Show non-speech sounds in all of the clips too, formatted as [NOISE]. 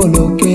con lo que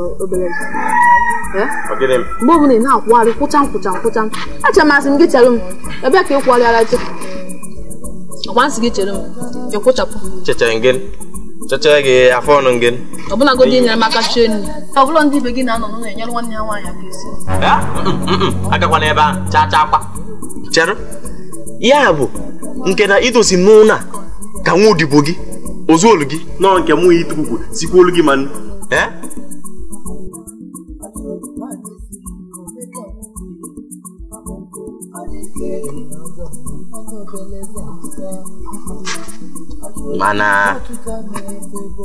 obere mgbe ọbụla ị na-akwụgharị kwụcha nkwụcha nkwụcha achọrọ m asị m gị chere m ebe ka ị kwụgharịara chi ọgba nsị gị chere m ị kwụchapụ chechere gị afọ ọnụ gị ọbụlagodi nyere m aka chie nri ọbụla ndị ibe gị na-anọ n'ụlọ enyere nwanne ya nwaanyị aka esi agakwana ebe ahụ chaa chaa akwa chere ya bụ nke na idosi m n'ụlọ ka nwa odibo gị ozuolu olu gị nọ nke mụ ya ite sikwa olu gị ma nnu ọ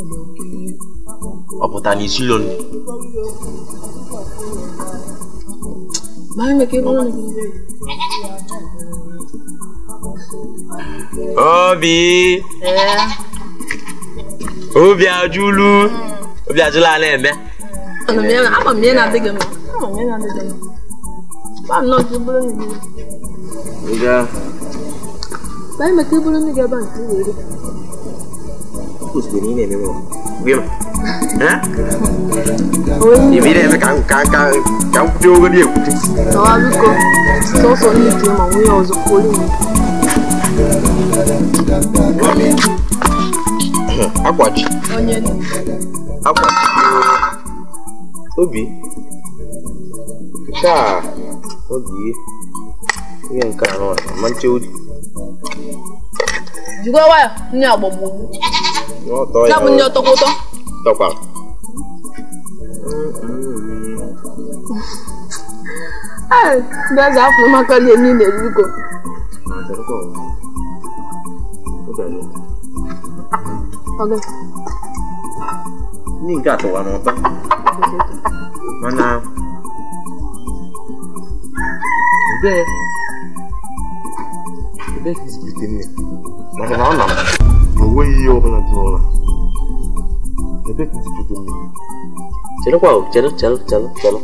n'isi na isilo nri obi obi ajụlu obi ajụla ala eme Pues mi nene, mi amor. Viêm. Hả? Nhìn đi đây mới càng càng càng càng tiêu cái điều. Đó là lúc cô. Số số đi thì mà nguy hiểm rồi cuối [COUGHS] đi. Akwachi. Obi. Obi. nke anọ na manche oji. Jikwa 나문요 떡고도 떡밥 아 나자 앞으로 막걸리 예민 내리고 아 저거 어디야 어디 니가 또 와는 거 만나 이제 이제 비슷비슷해 맞아 나왔나 onweghị ihe ọ dị n'ụlọ ebe ka izibudo mmiri chedekwa chedụ chedụ chedụ chedụ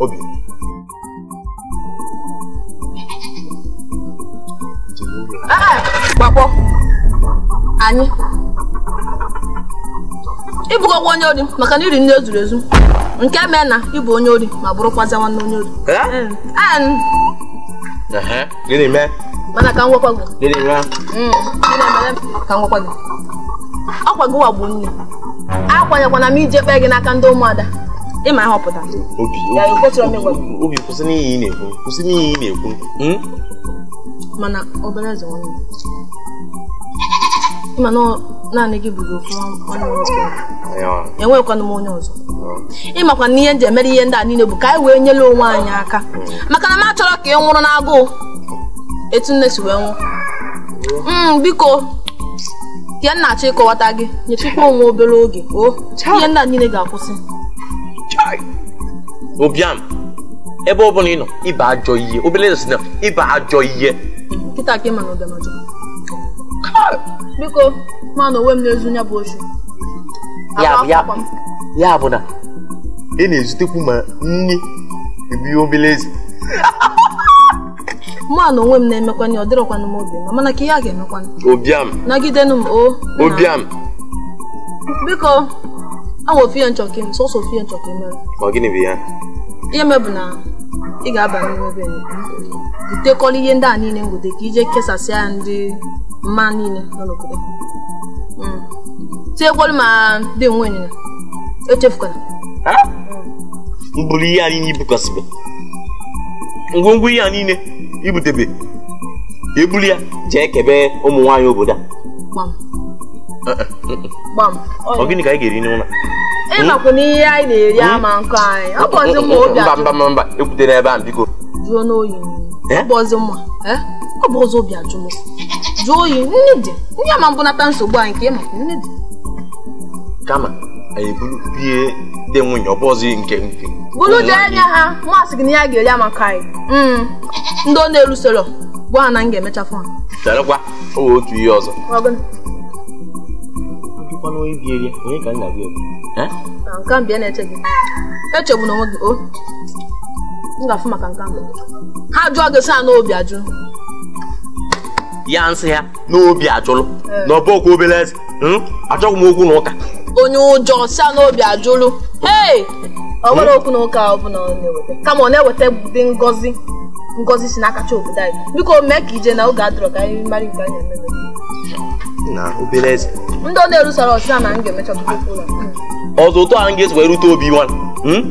obi gbakpọ onye ori maka na iri nne ezuru ezu nke mee na ịbụ onye ori ma bụrụkwazi nwanne onye ori gịnị mee mana ka ngwakwa gị gịnị mee mm. ka ngwakwa gị ọkwa gị wagburu nne akwanyekwana m ije kpee gị n'aka ndị ụmụada ịma ahọpụta obi kwụsị n'ihi ị na-ekwu kwụsị n'ihi ị na-ekwu hmm? mana obere eze nwanne mana naanị gị bụrụ ofu ọnụ nwoke enwekwana m onye ọzọ ịmakwa na ihe nji emere ihe ndị a niile bụ ka anyị wee nyere onwe anyị aka maka na m achọrọ ka ị nwụrụ n'agụụ etu nne si wee nwụ mm, biko ihe na-achọ ịkọwata gị nyechikwa onwe obere oge o oh, ihe ndị a niile ga-akwụsị obiam ebe ọ bụla ị nọ ịba ajọ ihe obere eze na ịba ajọ ihe nkịta ka ị ma na ụbịam biko ma na onwe m n'ezu ya bụ ochi ya bụ na ị na-ezutekwu ma nni ebi obele eze mụ na onwe m na-emekwanye ọ dịrọkwanụ m obi mana ka ihe a ga-emekwanụ obiam nagidenụ m o obiam biko awa ofu ya nchọka m sọsọ ofu ya nchọka emere ọ gịnị bụ ya ihe mebụ na ị ga-aba n'ime obe butekọla ihe ndị a niile ngote ka ije kesasịa ndị mma niile nọ n'obodo tinyekwalu ma ndị nwe ịnyịnya e echefukwana mkpụrụ ihe anyị niile ibukọsịbe ngwongwo ihe a niile ibutebe ebuli ya jee kebe ụmụ nwanyị obodo a eh, eh, mm, mm. gịnị ka anyị ga-eri n'ụlọ ịmakwa na ihe anyị na-eri mm. ama nkọ anyị ọ bụzi mma obi mba mba mba mba ekwutela ebe a biko jụọ n'oyi ọ bụzi mma ọ bụ eh? obi ajụ m jụọ oyi nne dị ndị ama mbụ nata nsogbu anyị ka ịmakwa nne dị kama anyị eburu bie dị nwunye ọ bụ nke nke bụrụ bụlụje anya ha masị gị na ya ga-eri amaka anyị hmm. ndị ọ na-erusoro gwa na m ga-emechafụ ha charakwa owe otu ihe ọzọ ah, echegbu e na onwe gị o oh. m ga-afụ maka nke ha jụọ gị sa n'obi ajụ ya nsị ha n'obi ajụlụ eh. na ọ bụ obere eze hmm? achọghị m okwu na ụka onye ụjọ sia n'obi ajụlụ ee ọ nwere hmm? okwu na ụka ọbụla ọ na-eweta kama ọ na-eweta dị ngozi ngozi si n'aka chi obodo anyị biko mee ka ije na oge adọrọ ka anyị mara nke anyị eme na obere ndị ọ na-erusara ọsịsa na m ga-emecha ọtụtụ ụlọ ọzọ ụtọ anyị ga-esi rute obi nwa hmm?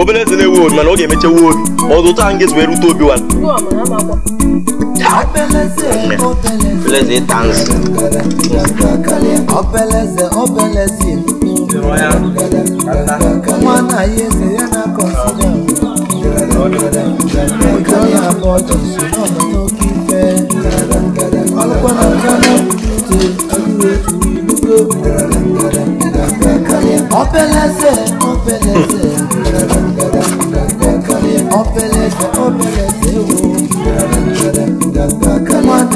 obere eze na-ewu obi mana ọ ga-emechewu obi ọzọ ụtọ anyị ga-esi rute obi nwa Beleza, tanz. Obeleze, obeleze. Mwana yeze yana kosinya. Ojo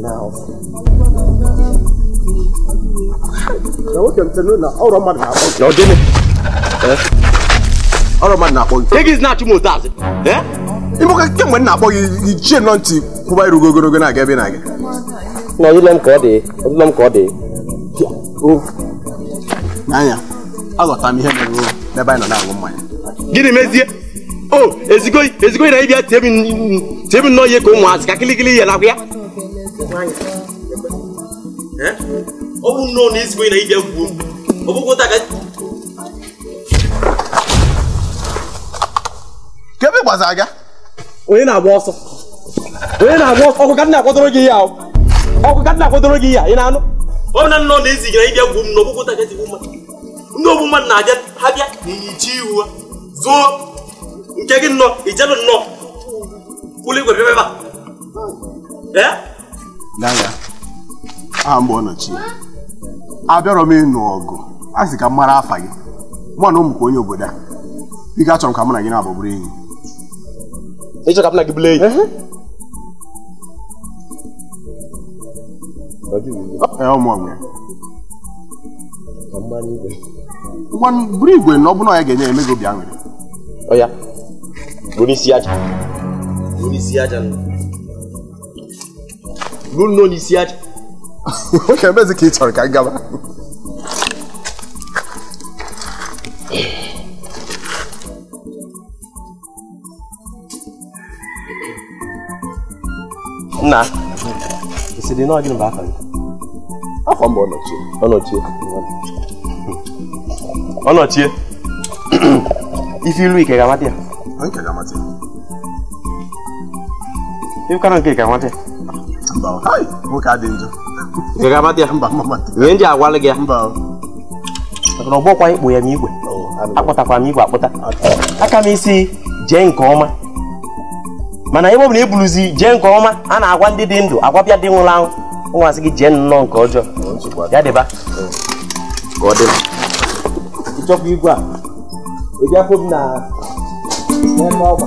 now ọrụ mmadụ na-akpọ gị na-akpọ gị ichie nọ ntị kwụba irugo na-aga ebe na-aga n'ile m ka dị dị n'anya m ihe n'ebe na mmanya gịnị o ezigoi ezigoi na ịbịa nnọọ ihe ka ụmụazị ka kịlịkịlị ihe nakwa ya n'anya ọ bụ nnọọ na ezigbo na ịbịa gwuo ọ bụkwa ka e kebe gbazara aga onye na-agba ọsọ onye na-agba ọsọ ọkụ ya ọkụ ya ị na-anụ ọ na nnọọ na ezigara ịbịa gwuo m na ọbụkwa taga jigbo mmadụ ndị ogbu mmadụ na-abịa ha bịa ihu ha nke gị nnọọ nnọọ kwụlụ igwe bịa Gaga, aha mgbe ọ nọchi abịarọ m ịnụ ọgụ a sị ka m mara afa gị mụ na ụmụ ka onye obodo a ike achọrọ m ka mụ na gị na-abụ bụrụ enyi ịchọ ka m na gị bụrụ enyi ngwa buru igwe na ọ bụrụ na ya ga-enye eme gị obi aṅụrị bụrụ isi aja bụrụ isi aja ruo nnọọ n'isi aja oke ka ị chọrọ ka gaba nna ịsịrị na ọdịnihu afọ gị afọ mbụ ọnọchie ọnọchie ọnọchie ife iru ike ga-amata ya ga ife kara nke ga-amata ihe ndị agwala gị ya ọgbọkwa ikpo ya n'igwe akpọtakwara m igwe akpọta aka m isi jee nke ọma mana ebe ọ na ebuluzi jee nke ọma a na-agwa ndị dị ndụ agwa bịa dị nwụrụ anwụ nwazi gị jee nnọọ nke ọjọọ ya dịba ịchọkwa igwe a eji afọ m na ọgba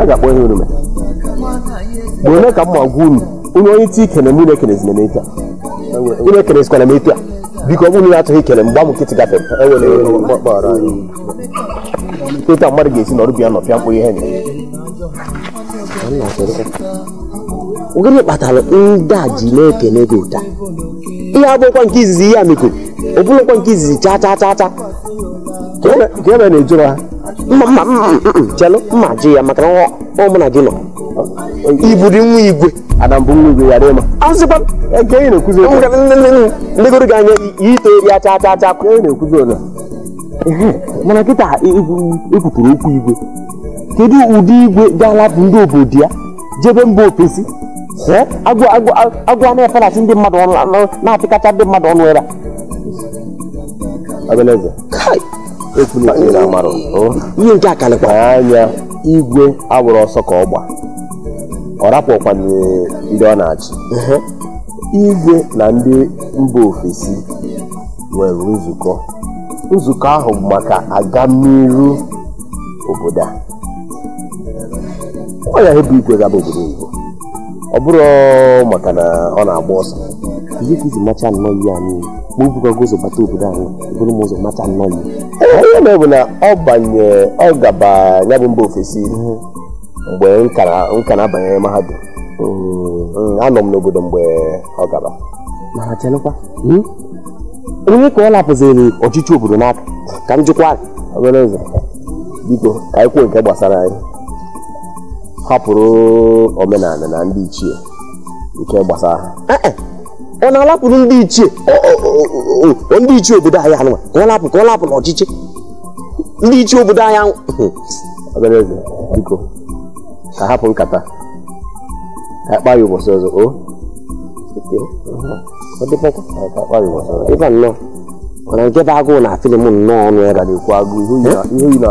a ga-akpọ ihe orume mgbe onye ka m ma gwa unu onye onye ti ikene m unu ekenezina m etu a unu ike m etu a biko ọ bụrụ na atụghị ikele mgbe amụ nkịtị ịta e mmadụ ga-esi n'ọrụ bịa nọpịa mkpụ ihe gịnị kpatara ndị a ji na-ekene gị ụta ihe abụghịkwa nke izizi ihe a ọ bụrụkwa nke izizi chaa ka ebe e na-ejụrụ ha chelu mma ji ya maka na ụmụ na gị nọ iburu nwa igwe legoro gị anya ite eri acha acha acha mana kịta ekwupụrụ okwu igwe kedu ụdị igwe ga-alapụ ndị obodo ya jebe mba ofesi agwụ na ndị mmadụ ọnụ na-apịkacha ndị mmadụ ọnụ ya ihe nke akalịkwa anya igwe agbụrụ ọsọ ka ọ gba ọ rapụkwana ndị ọ na-achị igwe na ndị mba ofesi nwere nzukọ nzukọ ahụ maka agamiru obodo a ọ ya ebu igwe gaba obodo ọ bụrụ maka na ọ na-agba ọsọ ihe ka iji macha nnọọ ihe a niile mgbe ibugwago ụzọ bata obodo anyị bụrụ m ụzọ mata nnọọ ihe na bụ na ọ banye ọ gaba ya bụ mba ofesi mgbe nka na-abanye mahadum hmm, anọ m n'obodo mgbe ọ gaba mana hmm? onye ka ọ lapụziri ọchịchị obodo n'aka ka m jụkwa obere ụzọ biko ka anyị kwuo nke gbasara anyị hapụrụ omenala na ndị ichie nke gbasara ha eh, eh. ọ na-alapụrụ ndị ichie ndị ichie obodo anyị anụwa ka ọ lapụ ka ọ lapụ n'ọchịchị ndị ichie obodo anyị ọganeze hmm. ka hapụ nkata ka ụbọchị ọzọ ịba nnọọ mana nke bụ agụụ na nnọọ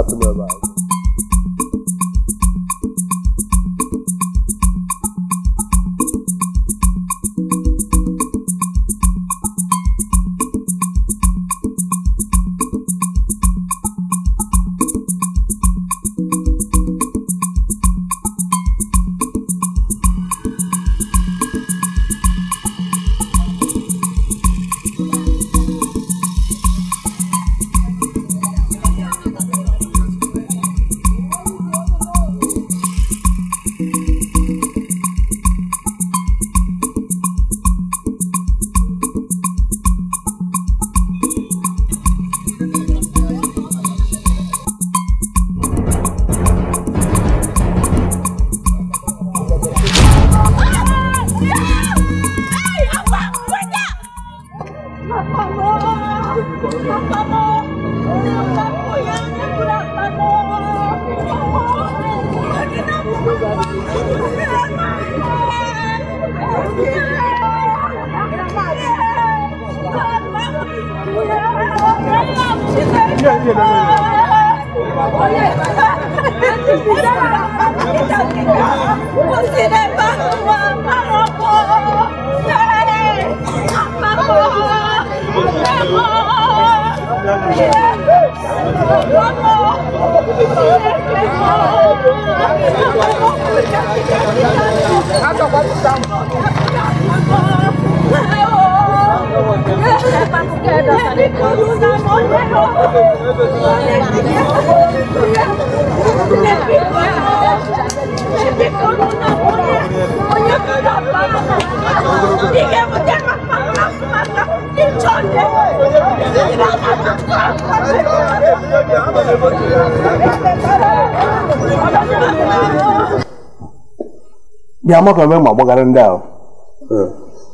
amakọme ma gbagara ndị ahụ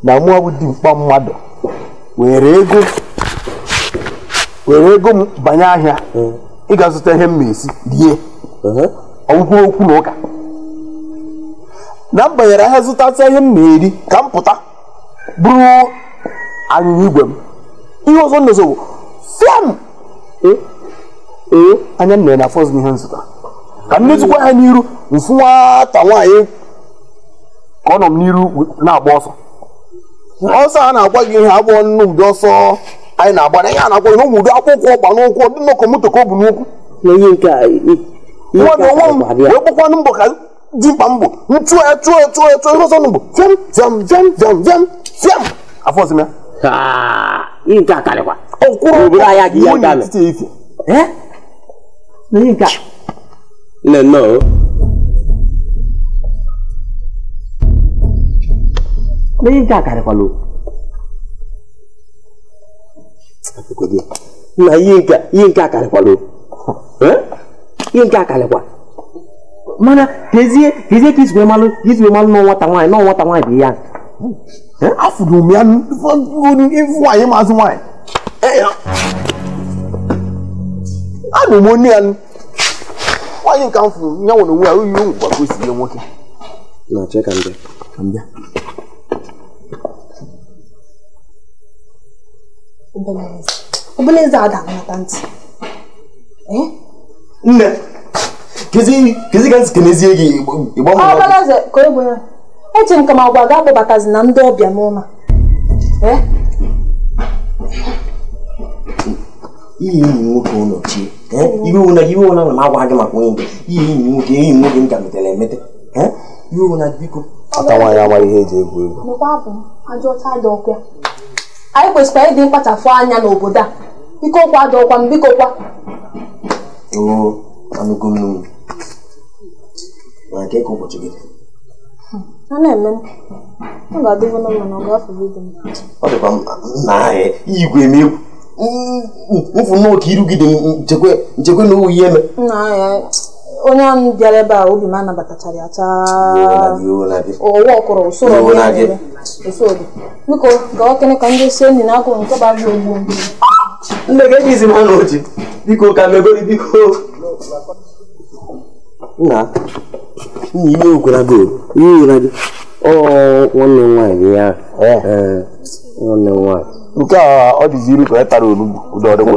na mụọ bụ dimkpa mmadụ were ego were ego m banye ahịa ị ga-azụta ihe m na-esi rie ọgwụkwọ okwu na ụka na m banyere ahịa zụtata ihe m na-eri ka m pụta bụrụ anyịnya igwe m ihe ọzọ nọzọ bụ fiam ee anya nne na afọzụ ihe nzụta ka m netụkwa ha n'iru mfụ nwata nwaanyị nọ m n'iru na-agba ọsọ ọsọ a na-agba gị ihe agbụọ ụdị ọsọ anyị na-agba na ihe a na-agwa gị n'ụmụ akwụkwọ ọgba n'ụkwụ dị nnọkọ moto ka ọ bụ n'ụkwụ nwa na onwe m wee mbọ ka mkpa mbọ m chụọ ya chụọ ya chụọ ya chụọ ihe ọsọ n'ugbo fiam fiam fiam fiam fiam fiam afọzim ya ọkwụrụ na ihe nke akarịkwala ihe nke akarịkwa mana kezie kezie ka izigbe malụ ka izigbe malụ na nwata nwaanyị na nwata ya afụrụ m ya ya ya nwere onwe ya oyi ụmụ na ubeleze ada anata ntị eh? nne kezi ka nzikenezie gị eji m ka m agwa ga akpọbatazi na ndị ọbịa n'ụlọ iyi enyi nwoke ụlọ chi iwe na m agwa gị maka onye iyi enyi nwoke enyi nwoke m ka metere emete iwe ụna biko ọta nwaanyị amaghị ihe eji egwu egwu anyị kwesịkwa ịdị mkpachapụ anya n'obodo a biko kwa adọkwa m biko kwa ọ dịkwa nna ahụ igwe megwu mfụmoke irugide nchekwe na owu ihe eme onye ahụ bịara ebe a obi m anabatachara ya chaọwa ọkọrọ ụsoro biko gawa kene ka ndị isi enyi na-agụ nke gbara ogbu ka nna nna ihe ihe gị nwanne nwaanyị gị ya nwanne nke a ka e tara olugbu ụdọ ọdịgbo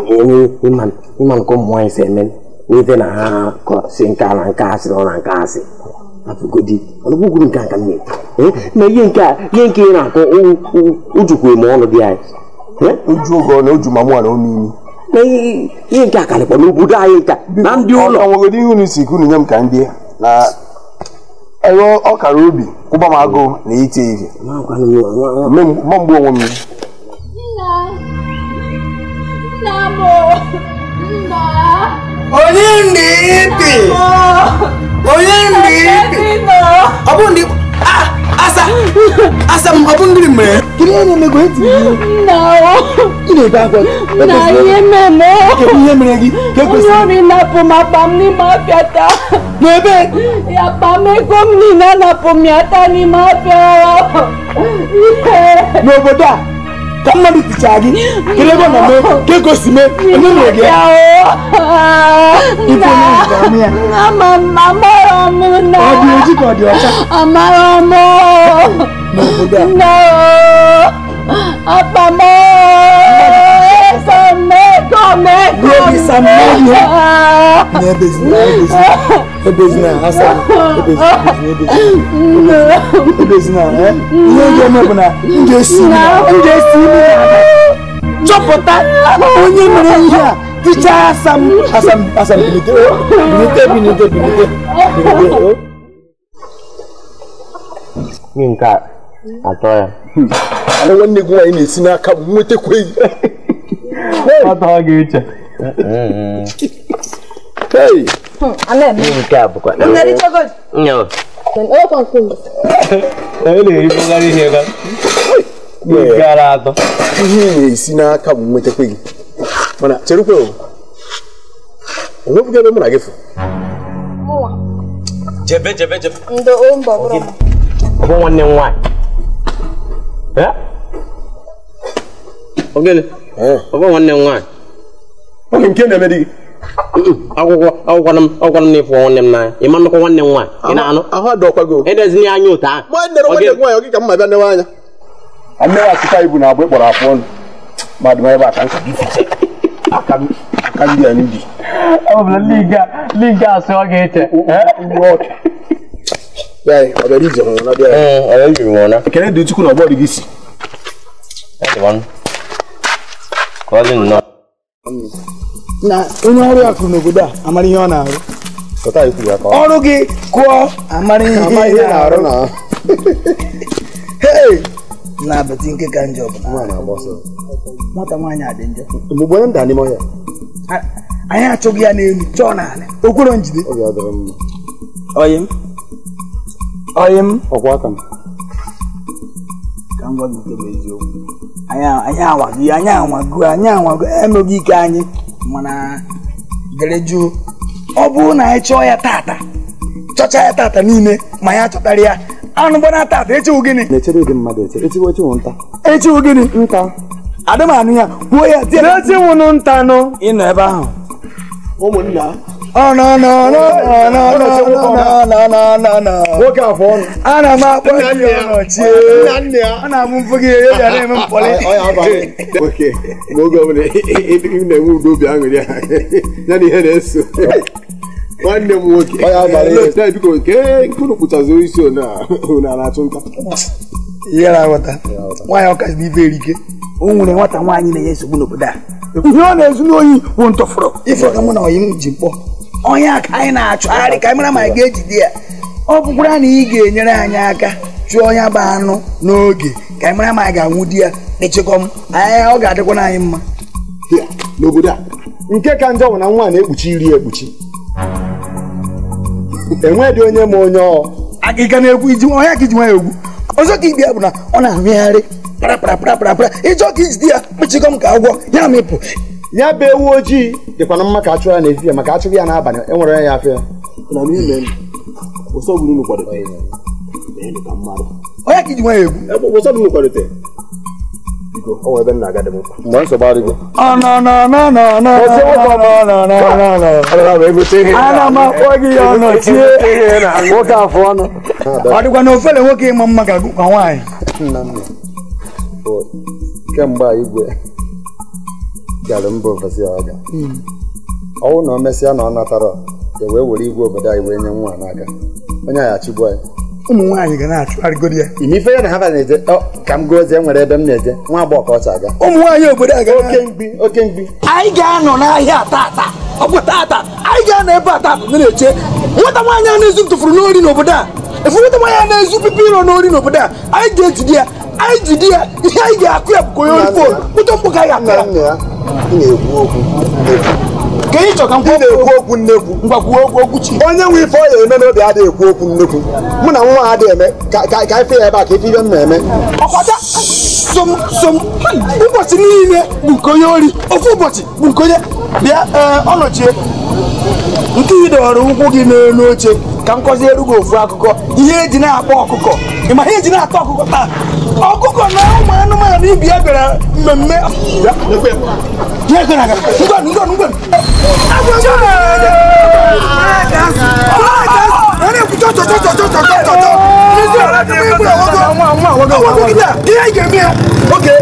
ịma nke ụmụ nwaanyị si eme n'ife eh? eh? na ha si nka na nka asị na nke asị ọnụgwụgwuru nke aka nne na ihe nke ihe nke ị na-akọ ujukwu eme ọnụ dị anyị uju oge ọla uju ma mụwa na omimi na ihe nke akarịkwa n'obodo anyị nka na ndị ụlọ ọnwegodi ihe unu si kunu nye m ka ndị na ero ọkara obi kwụba m agụụ na ite ihe mgbe mgbe onwe m Nna! Nna m! Nna! Onyendiipi. Onyendiipi. Ọ bụrụ na ah, asa asa m ọ bụ ndị mere kiri ihe na-emego eti nna ị na-ebe akwa nna ihe meme kedu ihe mere gị ka ekwesịrị onye ọrịa na-apụ m akpa m n'ime afịa taa n'ebe akpa m ego m niile anapụ m ya taa n'ime afịa n'obodo a kọ́mọ́dé ti ṣáàgì kílébọ̀ nà mọ́ kéko sì mẹ́ onímọ̀gẹ́. ibo ni ìgbàmí ẹ. àmàrà ọmọ náà. ọdí ojú kan ọdí ọjà. àmàrà ọmọ. mo kò dà. náà àpamọ́ sàmẹ́kọ̀ọ́ mẹ́kọ̀ọ́. lórí sàmẹ́kọ̀ọ́. ní ẹbẹ̀ sí ní ẹbẹ̀ sí. ebezina asa ebezina eh? ihe eme bụ na ndị esi e chọpụta onye mere ihe a ticha asam asam asam oh, oh. nke a atọ ya ana nwanne gị nwaanyị na-esi n'aka m nwetakweghị ọ gara atọ na-esi n'aka m nwetakwa gị mana cherukwe onwepụga mụ na gị fụ jebe jebe jebe bụ nwanne m nwaanyị ọ bụ nwanne m nwaanyị nke na-eme gị akwụkwọ akwụkwọ m akwụkwọ m na-efu nwanne m n'anya ị ma nnukwu nwanne m nwaanyị na-anụ ahụ adọkwago edezina ya anya otu ahụ nwanne nwaanyị ọ gị ka mma bịa newe anya mmiri achịcha ibu na agba ịkpọrọ afụ ọnụ mmadụ ebe aka nka aka ọ bụla liga ọ ekele dị na dị gị si na onye ọrụ akụ n'obodo a amara ihe ọ na-arụ ọrụ gị kụọ amara ihe ị na-arụ na [LAUGHS] na abati nke ka njọ nwata nwaanyị adị njọ anyị achọghị ya n'elu chọọ n'ala okwere njide oyim oyim Oyi. aka m ka m gwa gị nke bụ eziokwu anyị anwago anyị anwago anyị anwago emeghị ike anyị mana dere jụụ ọ bụrụ na anyị chọọ ya tata chọcha ya tata niile ma ya chọtara ya anụ gbana tata echiwu gịnị echiwu gịnị nta adịmanụ ya gbuo ya tinye echiwunụ nta nụ ịnọ ebe ahụ ụmụnna ana m akpọ gị ana gị ya ya na ya na nwanne m nwoke nke isi ona na-achụ nta ihe na-aghọta erike o nwere nwata nwaanyị na-enye nsogbu n'obodo a ihe ọ na-ezu n'oyi bụ ntọfụrụ ife ọga mụ na m ji onye ka anyị na arị ka anyị mara ma ga-ejide ya ọ bụkwara na ị ga-enyere anyị aka chụọ onye bụ anụ n'oge ka anyị mara ma anyị ga-anwụ di ya echekọm anyị ọ ga-adịkwana anyị mma n'obodo a nke ka njọ bụ na nwa na-ekpuchi iri ekpuchi enweghị onye ma onye ọ agịga na ekwu iji ọnya ka iji nwa egwu ọzọ ka ibi ya bụ na ọ na-amịgharị parapara parapara ịjọ ka ijide ya kpechikọm ka agwọ ya mịpụ ya bụ ewu ojii dịkwana mma ka a chụrụ ya n'ehihie maka achụghị ya n'abalị enwere ya afịa onye ka iji nwa ya egwu m nwoke afụ ọnụ ọ dịkwa na ofele nwoke ịma mma ka nwaanyị kemgbe igwe gara mba ofesi aga ọwụ na o mesịa na ọ natara e wee were igwe obodo anyị wee nye nwa n'aka onye anyị achịgbu anyị ụmụ nwaanyị ga na-achụgharịgodi ya ime ife ya na ha na-eje ka m gozie e nwere ebe m na-eje nwa agbọghọ ka ọ cha aga ụmụ nwaanyị obodo aga oke mgbi oke mgbi anyị ga-anọ n'ahịa tata ọ bụ tata anyị ga-anọ ebe a tata na-eche nwata nwaanyị a na-ezu m n'ori n'obodo a efu nwata nwaanyị a na-ezu pipi iro n'ori n'obodo a anyị ga-ejide ya anyị ji di ya ihe anyị ga-akụ ya bụkwa onye mkpụrụ ụtọ mkpụ ka anyị akara ka ị chọka na-ekwu okwu nnekwu ngwakwuo okwu okwu chi. onye nwe ife ọ ya eme n'obi adịghị ekwu okwu nnekwu mụ na nwa adịghị eme ka ka ife ya ebe a ka ife ibe m na-eme ọkpata som som ụbọchị niile bụ nke onye ori ofu ụbọchị bụ nke onye bịa eh, ọ nọchie nke ị dọrọ ụkwụ gị n'elu oche ka nkọzi erugo ofu akụkọ ihe eji na-akpọ ọkụkọ ị ihe eji na-atọ ọkụkọ taa ọkụkọ na ụmụ anụmanụ ibi ya bịara mmemme oge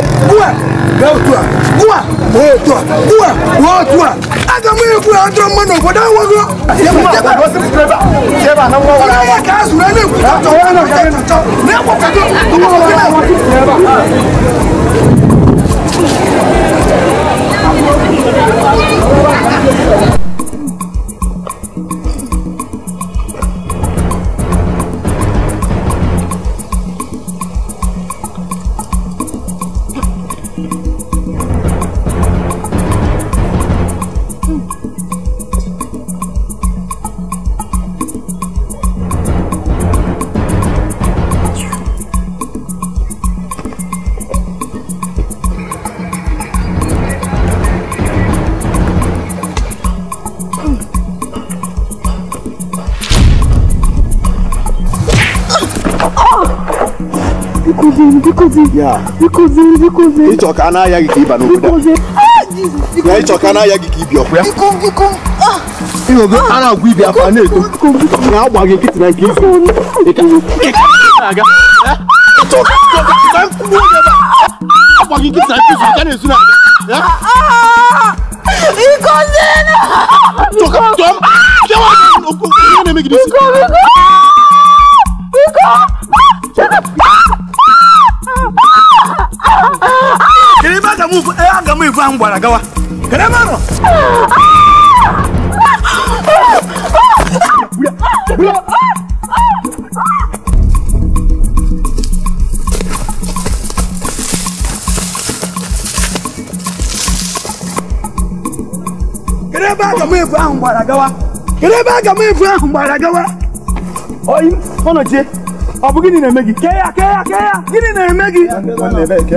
gautwa kuwa wotwa kuwa wotwa aga mwe kuwa andro mano boda wago jeba jeba ya kazu na ne kuwa to ka ne to ne ko ka to kuma wala wa jeba Thank you. yeah, bikoze bikoze ịchọka a na-aya gị ka ịba n'obodo na ịchọka na-aya gị ka ịbịa ọkwa ịhụgo a na-agwa ibi afa na-eto na ah. ah. agba gị nkịtị na nke izu ikozena Biko, biko, biko. Eh, aga m ibu ahụ kedu ebe kedu ebe gbara gawa kedu ebe aga m ibu ahụ gbara gawa oyi ọnọchie ọ bụ gịnị na-eme gị kee ya kee ya kee ya gịnị na-eme gị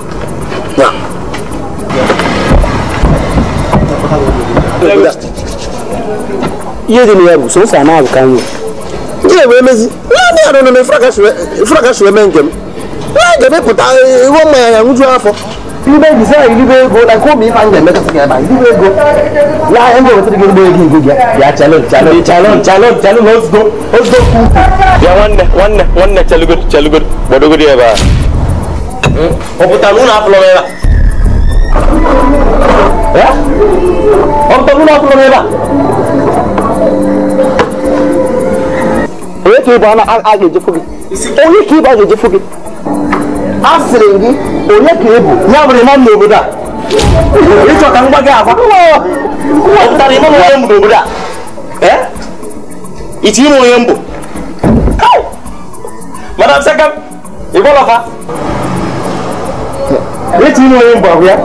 regular. Yeye ni yabu so sana akanyo. Yeye wemezi. Nani anono me fraka shwe fraka shwe mengem. Na gebe puta wo ma ya ngutu afọ. Ibe bisa ibe go na ko mi fa ngem ka sikira ba. Ibe go. La engo wetu go go egi egi ya chalo chalo chalo chalo chalo let's go. Let's go. Ya wanne wanne wanne chalugur chalugur boduguri ba. Hmm. Oputa luna aflo ba. Ya? onye ka ịbụ a ga gị onye ka ịbụ a gị a gị onye ka ya bụrụ ịma n'obodo a ịchọ ka m gwa gị agwa ọpụtara ịma onye mbụ n'obodo a iti ime onye mbụ madam sekam ịgwọlọfa iti ime onye mbụ ahụ ya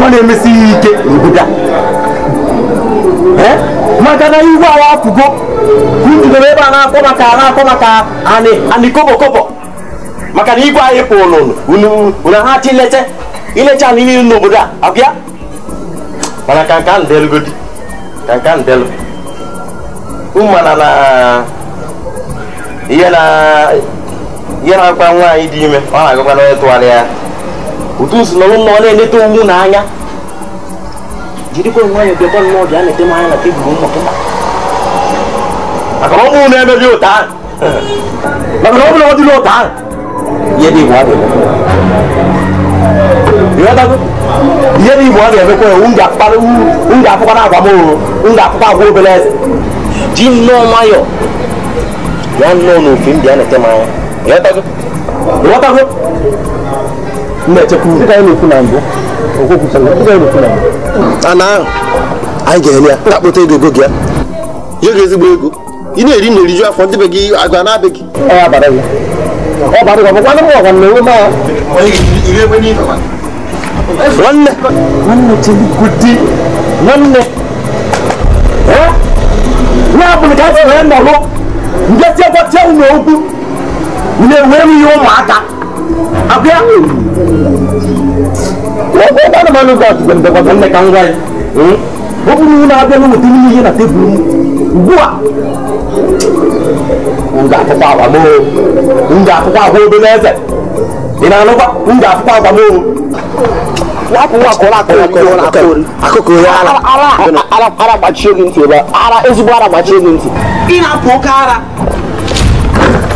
nwa na-emesi ihe ike obodo maka na iwu awa apụgo ududoro ebe a na-akpọ maka na-akpọ maka anị kobo kobokobo maka na igwe anyị pụ unu ha chi ilete ilecha anị niile n'obodo a abịa mana ka ihe na-akwa nwaanyị dị ime ọ na-agakwa n'onye tụgharị ya utu si n'ọrụ mmụọ na-enete ụmụ n'anya jirikwa nwayọọ bịakwa nnọọ bịa na-ete m anya na tebụl ụmụ gị maka na ọ bụrụ na emeghị ụta maka na ọ bụrụ na ọ dịla ụta ihe dị igbo adịghị ịghọtago ihe dị igbo ọ ga-emekwa ewu m ga-apụkwa na agwa m oro m ga-apụkwa agwa obere eze ji nnọọ nwayọọ bịa nnọọ n'ofe m bịa na-ete m anya ana anyị ga-enye ya ndị akpụta ego ego gị ya ezigbo ego ị na-eri na eriju afọ ndị be gị a na ya ka a sịrị na-enweghị ihe ụmụaka abịa ụkwara manụ gọt gwere ndekwa nne ka m gwa ya ọ bụrụ na-abịa na weta ihe na tebụl m ugbu a m ga-afụkwa agwa m m ga agwa obere eze ị na-anụkwa m ga agwa m ara ezigbo ara gbachie gị ntị ị na-apụ oke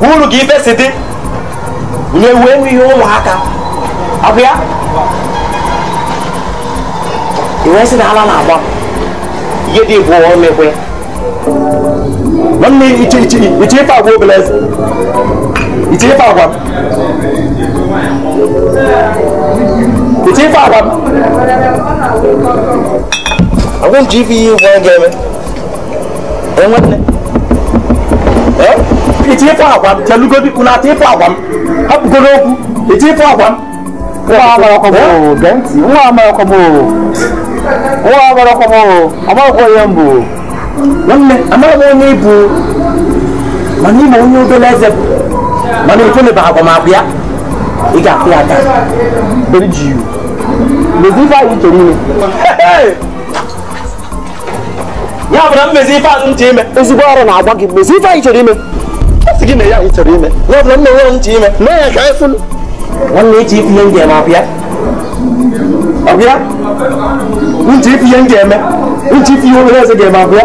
uru ka ife si dị nye wee ihe ụmụaka ọ bụ ya iwe si na ala na-agba ihe dị bụ omekwe nwanne iche iche iche ife agwa obele eze iche ife agwa m iche ife agwa m agwa m ji ife ihe igwe ga-eme nwanne iche ịfụ agwa m chelugodi ụnata ịfụ agwa m hapụgoro okwu agwa m nwa agbarakwamo amaghịkwa onye m nwanne amaghị onye bụ mana ịma onye obere eze bụ mana ifeleba agbamakwụ ya ị ga mezi ife anyị chere ime ya mmezi ife ime ezigbo ọrụ na-agwa gị mezi ife anyị chere ime gị mere ya anyị chọrọ ime n'ọbụla m na-enwere m nche ime mee ya ka anyị fụlụ nwanne echi ifu ihe m ga-eme ọbịa ọbịa nche ifu ihe m ga-eme nche ifu ihe obere eze ga-eme ọbịa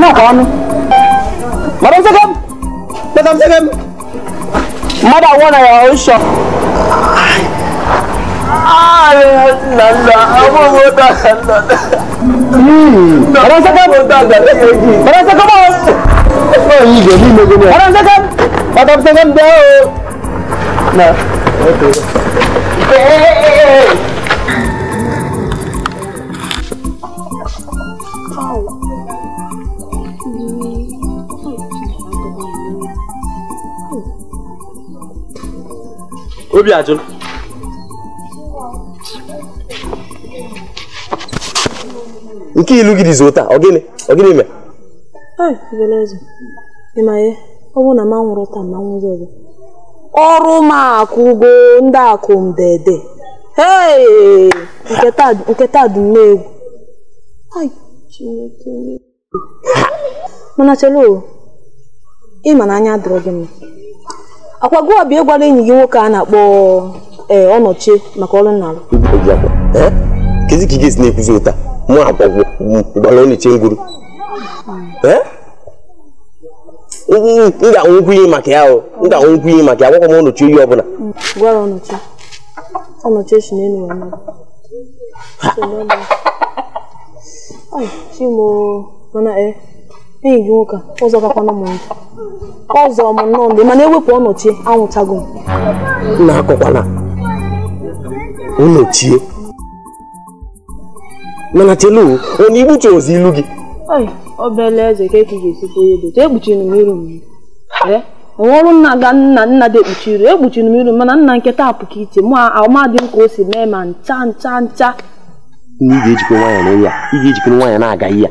Nó còn Mà đâu sẽ không Mà đâu sẽ không More than one naira ó sọ. Ọ̀rọ̀ sẹ́kẹ̀ ọ̀rọ̀ sẹ́kẹ̀ bọ̀. Ọ̀yìn ìgbè ní ìgbè ní ọ̀rọ̀ sẹ́kẹ̀ bàtà sẹ́kẹ̀ bẹ́ẹ̀ o. nke ilu gị dịzi ụta ọ gịnị na m anwụrụ ma ọrụ m akụgo ndị akụ ndede nke taa dị egwu mana chelo ị ma na anya dịrọ mma akwago abịa ịgwara enyi gị nwoke a na-akpọ eh, ọnọchị maka ọrụ nna kezi ka ị ga-esi na-ekwuzi ụta mụ agwagwo gbara ọnọchie ngwuru m ga maka ya m ga maka ya m ọnọchi oyi ọbụla gwara ọnọchi enyi gị nwoke ụzọ gakwana m nkụ ọzọ m nnọọ ndị mana ewepụ ọnọchie anwụchago m na-akọkwana ụnọchie mana chelu onye igbuche ozi ilu gị obele eze ka eke ga-esikwa onye dote ekpuchiri m iru m ọrụ nna ga nna nna dị ekpuchi iru ekpuchiri m iru mana nna nketa apụka iche mụ amadị m ka o si mee ma ncha ncha ncha ị ga-ejikwa nwaanyị na a ị ga-ejikwa nwaanyị na-aga ya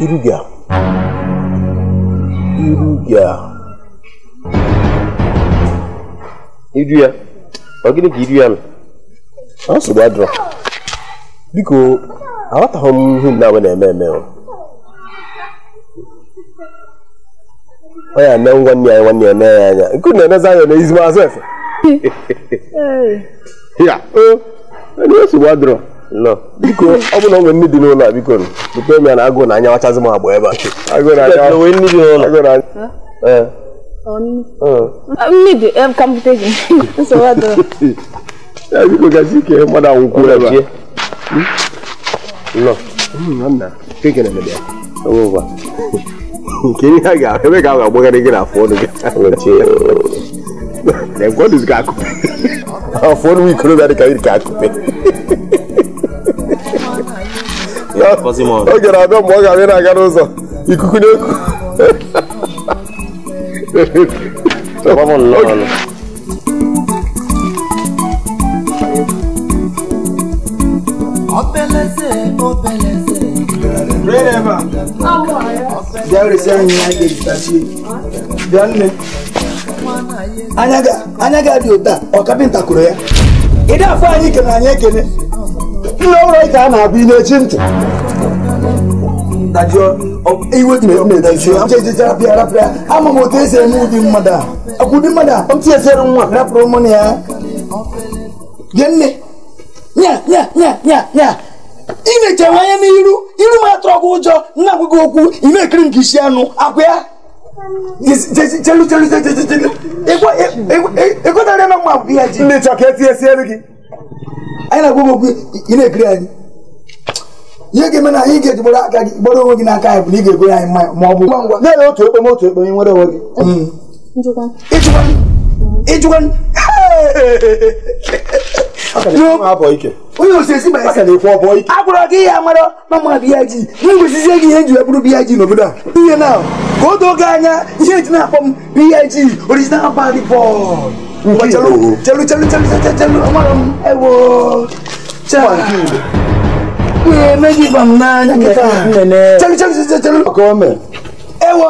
Iruga. Iruga. Iruya. Ọ gịnị ka iruya nọ? Ah, ọ nsogbu adịrọ. Biko, aghọtaghị m ihe na-agba na-eme eme oh ya na nwanne ya nwanne ya na ya anya. Nke na-emezi anya na ezigbo Ya, oh, ọ dị nsogbu biko ọ bụ na onwe nne dị n'ụlọ a biko bute ya na agụụ na anya wachazị m agba ebe a biko gasị ah, [LAUGHS] ike mmadụ anwụkwuo ebe a hmm, nke ihe ga ebe ka a agbagharị gị n'afọ ọnụ gị afọ ọnụ ikorobịa dị ka iri ka akụpe [LAUGHS] o jere abịa mgbe ọ ga-abịa na-aga n'ụzọ ikuku n'eku Obeleze, obeleze. Wherever. Bịa resi anyị ya ga-ejitachi. Bịa nne. Anya ga dị ụta, ọ kapịnta kụrụ ya. Ị na-afọ anyị kere anyị ekene. Nna ụlọ ịka a na-abụ ị na-echi ntị. ama m otu esi eme ụdị mmadụ a akwụ ụdị mmadụ a esere nwa rapụrụ na ya gee nne nya ị na anya n'iru iru m atụrụ gị ụjọ nna gị okwu ị na-ekiri nke isi anụ ya ịgụtara na mma ya ji ndị chọka etinyesiere gị anyị na ekiri anyị ihe ga-eme na ị ga-eji gbara aka gị gbara onwe gị n'aka anyị bụ na ị ga-egoro anyị mmanya ma ọ bụ ngwa ngwa na-ele otu ekpeme otu ekpeme nwere onwe gị ịjụkwa onye osisi agwụrọ gị ya mara mama biya ji na ngwesizie gị ihe eji wee bụrụ biya ji n'obodo a ihe na ka o doo gị anya ihe eji na-akpọ m biya ji original bad boy chelu chelu chelu chelu chelu chelu amara m ewo chelu m n'anya kịta ewo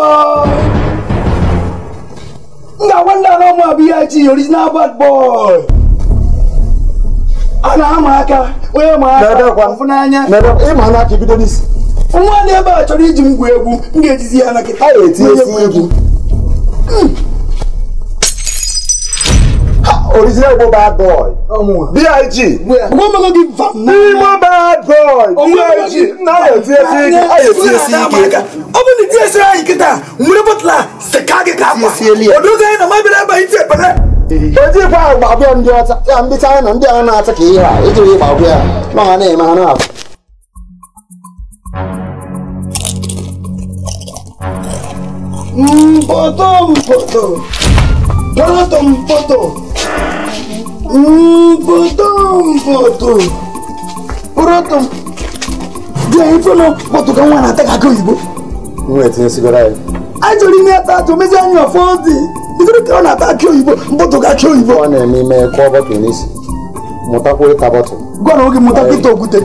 nna nwanne ala ụmụ abụ ihe ji original bad boy a na-ama aka onye maaka aka fụ n'anya nwa na ebe a chọrọ iji m gwuo egwu m ga-ejizi ya na kịta ya etinye original Igbo bad boy. B.I.G. Igbo bad boy. B.I.G. Nna ya tie si ike. A ya tie si ike. Ọ bụ na tie si anyị kịta, nwere bọtụla seka gị ka akwa. Odozi anyị na mabiri ebe anyị tie pere. Oji kwa agba abịa ndị ọcha, ya ndị China ndị a na-acha ka ihe a, iji wee gbagbu ya. Ma ha na-eme ha na-afụ. Mpoto mpoto. Poto mpoto. Потом, потом. Протом. Dia infono moto kan wana ta kakan yibo. Mo e tin sigara e. Ajori ni ata to meja ni ofondi. Isoro kan na ta ki oyibo, moto ka ki oyibo. Wọ́n ní mi mẹ́ kọ́ bọ́tù nísì. Mo ta kórè ta bọ́tù. Gbọ́dọ̀ oge mo ta kí tó gùtẹ̀.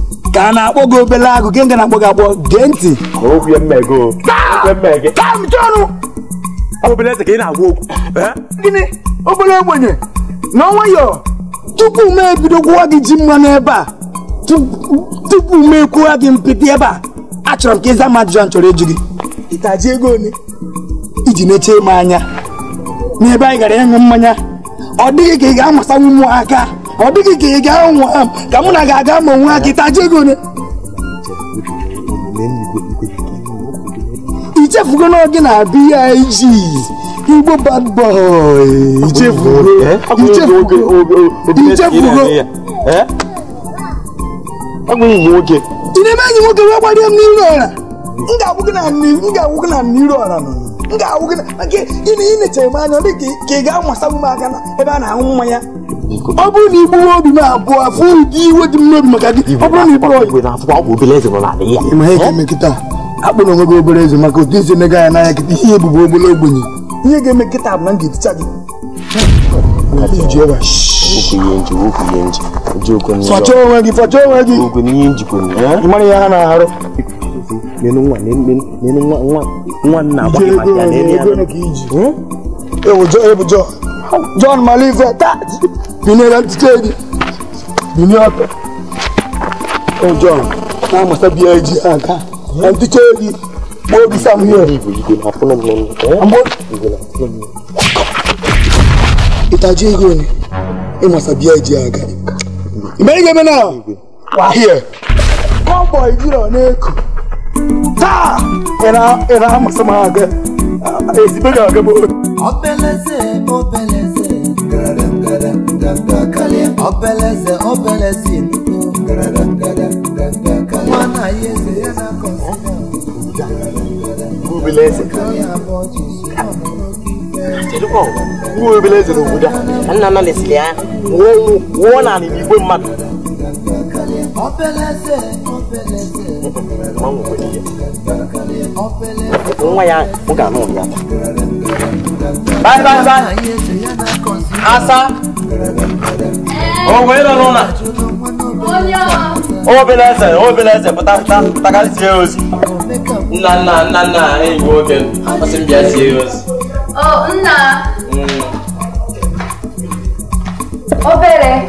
ka a na-akpọ gị obele agụ gị nga na-akpọ gị akpọ gee ntị obele eze ka ị na eh? gịnị obere ogbenye na nwayọọ tupu m ebido gwụwa gị ji mmanụ ebe a tupu m ekwuwa gị mpịtị ebe a achọrọ m ka ịza m ajụjụ chọrọ ịjụ gị ịtaji ego ole iji na m anya n'ebe anyị gara ịṅụ mmanya ọ dịghị ka ị ga-amasanwu m aka ọ dịghị ka ị gaa anwụ ha ka mụ na gị aga ma nwa gị taje ego ichefugo na gị na igbo bad boy ị na-eme enyi nwoke wee gbarie m n'iru ọra m ga-agwụ gị na n'iru ọra nọ m ga-awụ gị maka ị na-echere m anya ọ dị ka ị ga m na ebe a na-aṅụ mmanya ọ bụrụ na igbuwe obi m abụọ afọ ụdị iwe dị m n'obi maka gị ọ bụrụ na ịkpọrọ ya ma ga onwe gị obere eze maka otu eze emega ya n'anya kịta ihe ebubo obere ogbenye ihe ga-eme bụ na m ga-eticha gị fọcha onwe gị onwe gị ihe ha na-arụ binera mtiteni binyope ojo oh, na masa biya ji aka ah, ah. mtiteni mo bi sam ah, here ambo itaje ego ni e masa biya ji aka imerige mena wa here convoy jiro na eku taa ira ira masa ma aga ezibega aga bo obeleze ọbẹlẹsẹ ọbẹlẹsẹ nìkú wọn náà yé ṣe yẹn náà kọ sí Jelibo, uwe ebele eze n'obodo a, ka nna nna lesiri ya, nwụọ naanị n'igwe mmadụ. Nwa ya, m ga-anụ ụnyaahụ. Bye bye bye. Asa. obere eze nna nna nna nna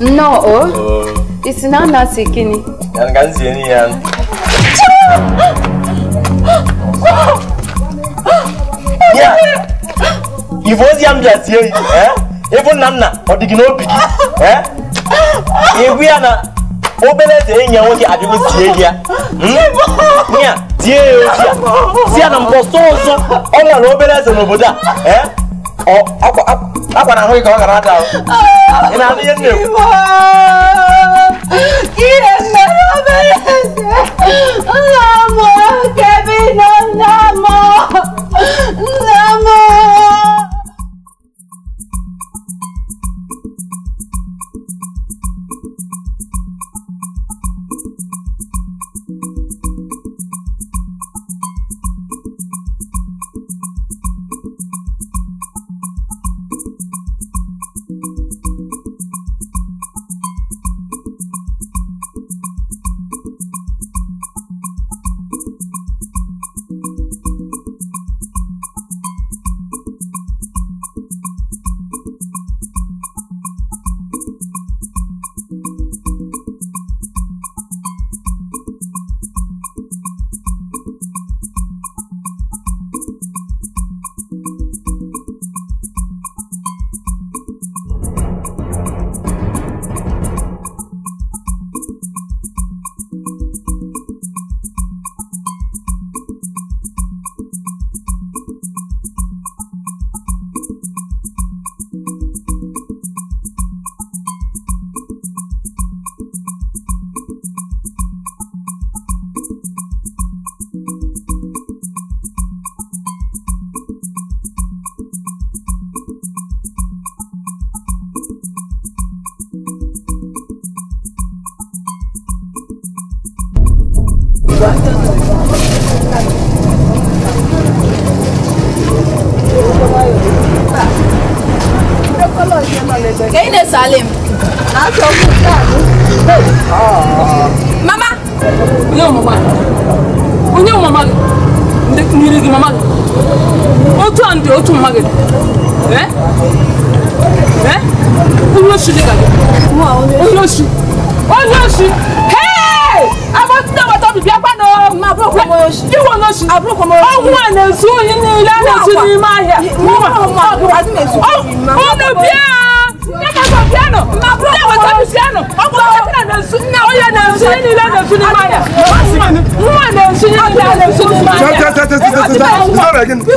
nnọọ o isi na nna si gịnị ya ka nzie n'ihe ya ya ife ozi ya m bịa tie ife nna ọ dị hmm. eh. oh. gị [GASPS] ibu ya na obere eze enyi nwoke abịago tie ya ya tie ya oji ya si ya na mkpọsọ ọzọ ọ nwere obere eze n'obodo a akwa na ahụ ka ọ gara ada ị na ihe nna nna m kevin nna m nna m Ọ̀nà bíà. Nyakasa piano. Nyakasa piano. Ọ̀pọ̀ ọ̀pọ̀ tina na nsu. Na ọ̀yà na nsu ni ilé na nsu ni maya. Mwa na nsu ni ilé na nsu ni maya. Tẹ tẹ tẹ tẹ tẹ tẹ. Sọ̀rọ̀ ẹ̀gin. Sọ̀rọ̀ ẹ̀gin. Sọ̀rọ̀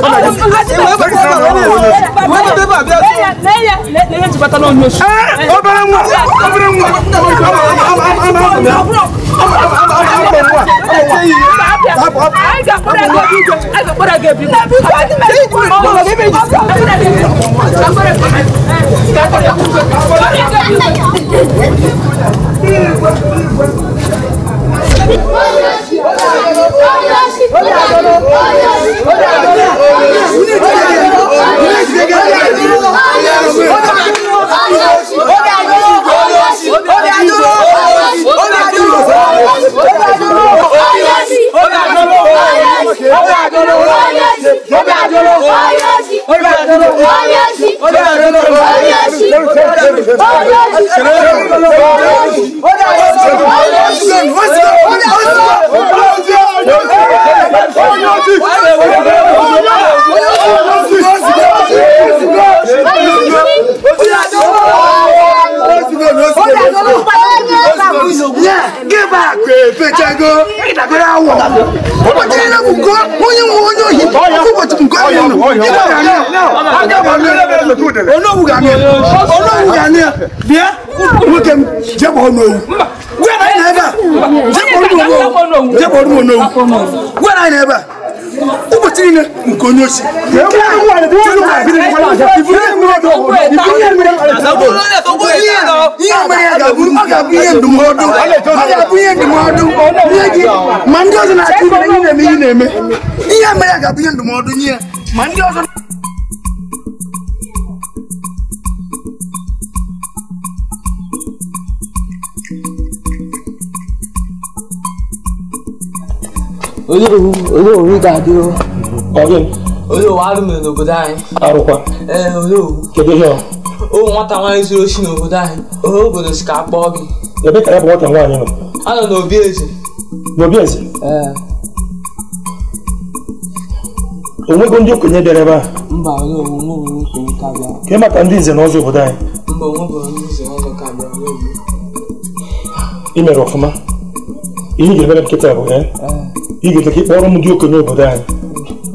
ẹ̀gin. Sọ̀rọ̀ ẹ̀gin. Sọ̀rọ̀ ẹ̀gin. Wọ́n ti dé bàbá yẹn. Lẹ́yẹ lẹ́yẹ ti bàtà náà ní oṣù. Ẹ obìnrin mu obìnrin mu. Olha a luz! Oh, ụbọchị ya bụ nke onye nwe onye ohi ụbọchị nke onye nọ onogwu ga-anụ ya bịa nwoke m n'owu anyị na a jekpọrụ m n'owu gwa anyị na a ụbọchị niile nke onye osi tí wọ́n lù kàbí ní kọ́lá àjẹ ìfúnni mi ò dọ̀ wọ́n ìfúnni mi ò dọ̀ wọ́n iye mi yẹ gabu ma gabu iye dumu ọdún ma gabu iye dumu ọdún iye gi ma ndị ọzọ na-atụ ibe ihe na-eme ihe na-eme iye mi yẹ gabu iye dumu ọdún iye ma ndị ọzọ Oye òwú, oye òwú ga dúró. Ọ̀rẹ́ mi olówó arúmi n'obodo anyị arụkwa ee olówó kedu ihe o nwata nwaanyị zuru oshi n'obodo anyị ohe obodo si ka a gị ebe ka ya bụ nwata nwaanyị nọ a nọ n'obi eze n'obi o ee onwego ndị okenye bịara ebe a mba ke maka ndị nze na ọzọ obodo anyị mba onwebụrụ ndị nze na ọzọ ka bịara n'obi ị mere ọfụma ihe ị ga-emere nkịta bụ ya ị ga-ete ka ị kpọrọ m ndị okenye obodo anyị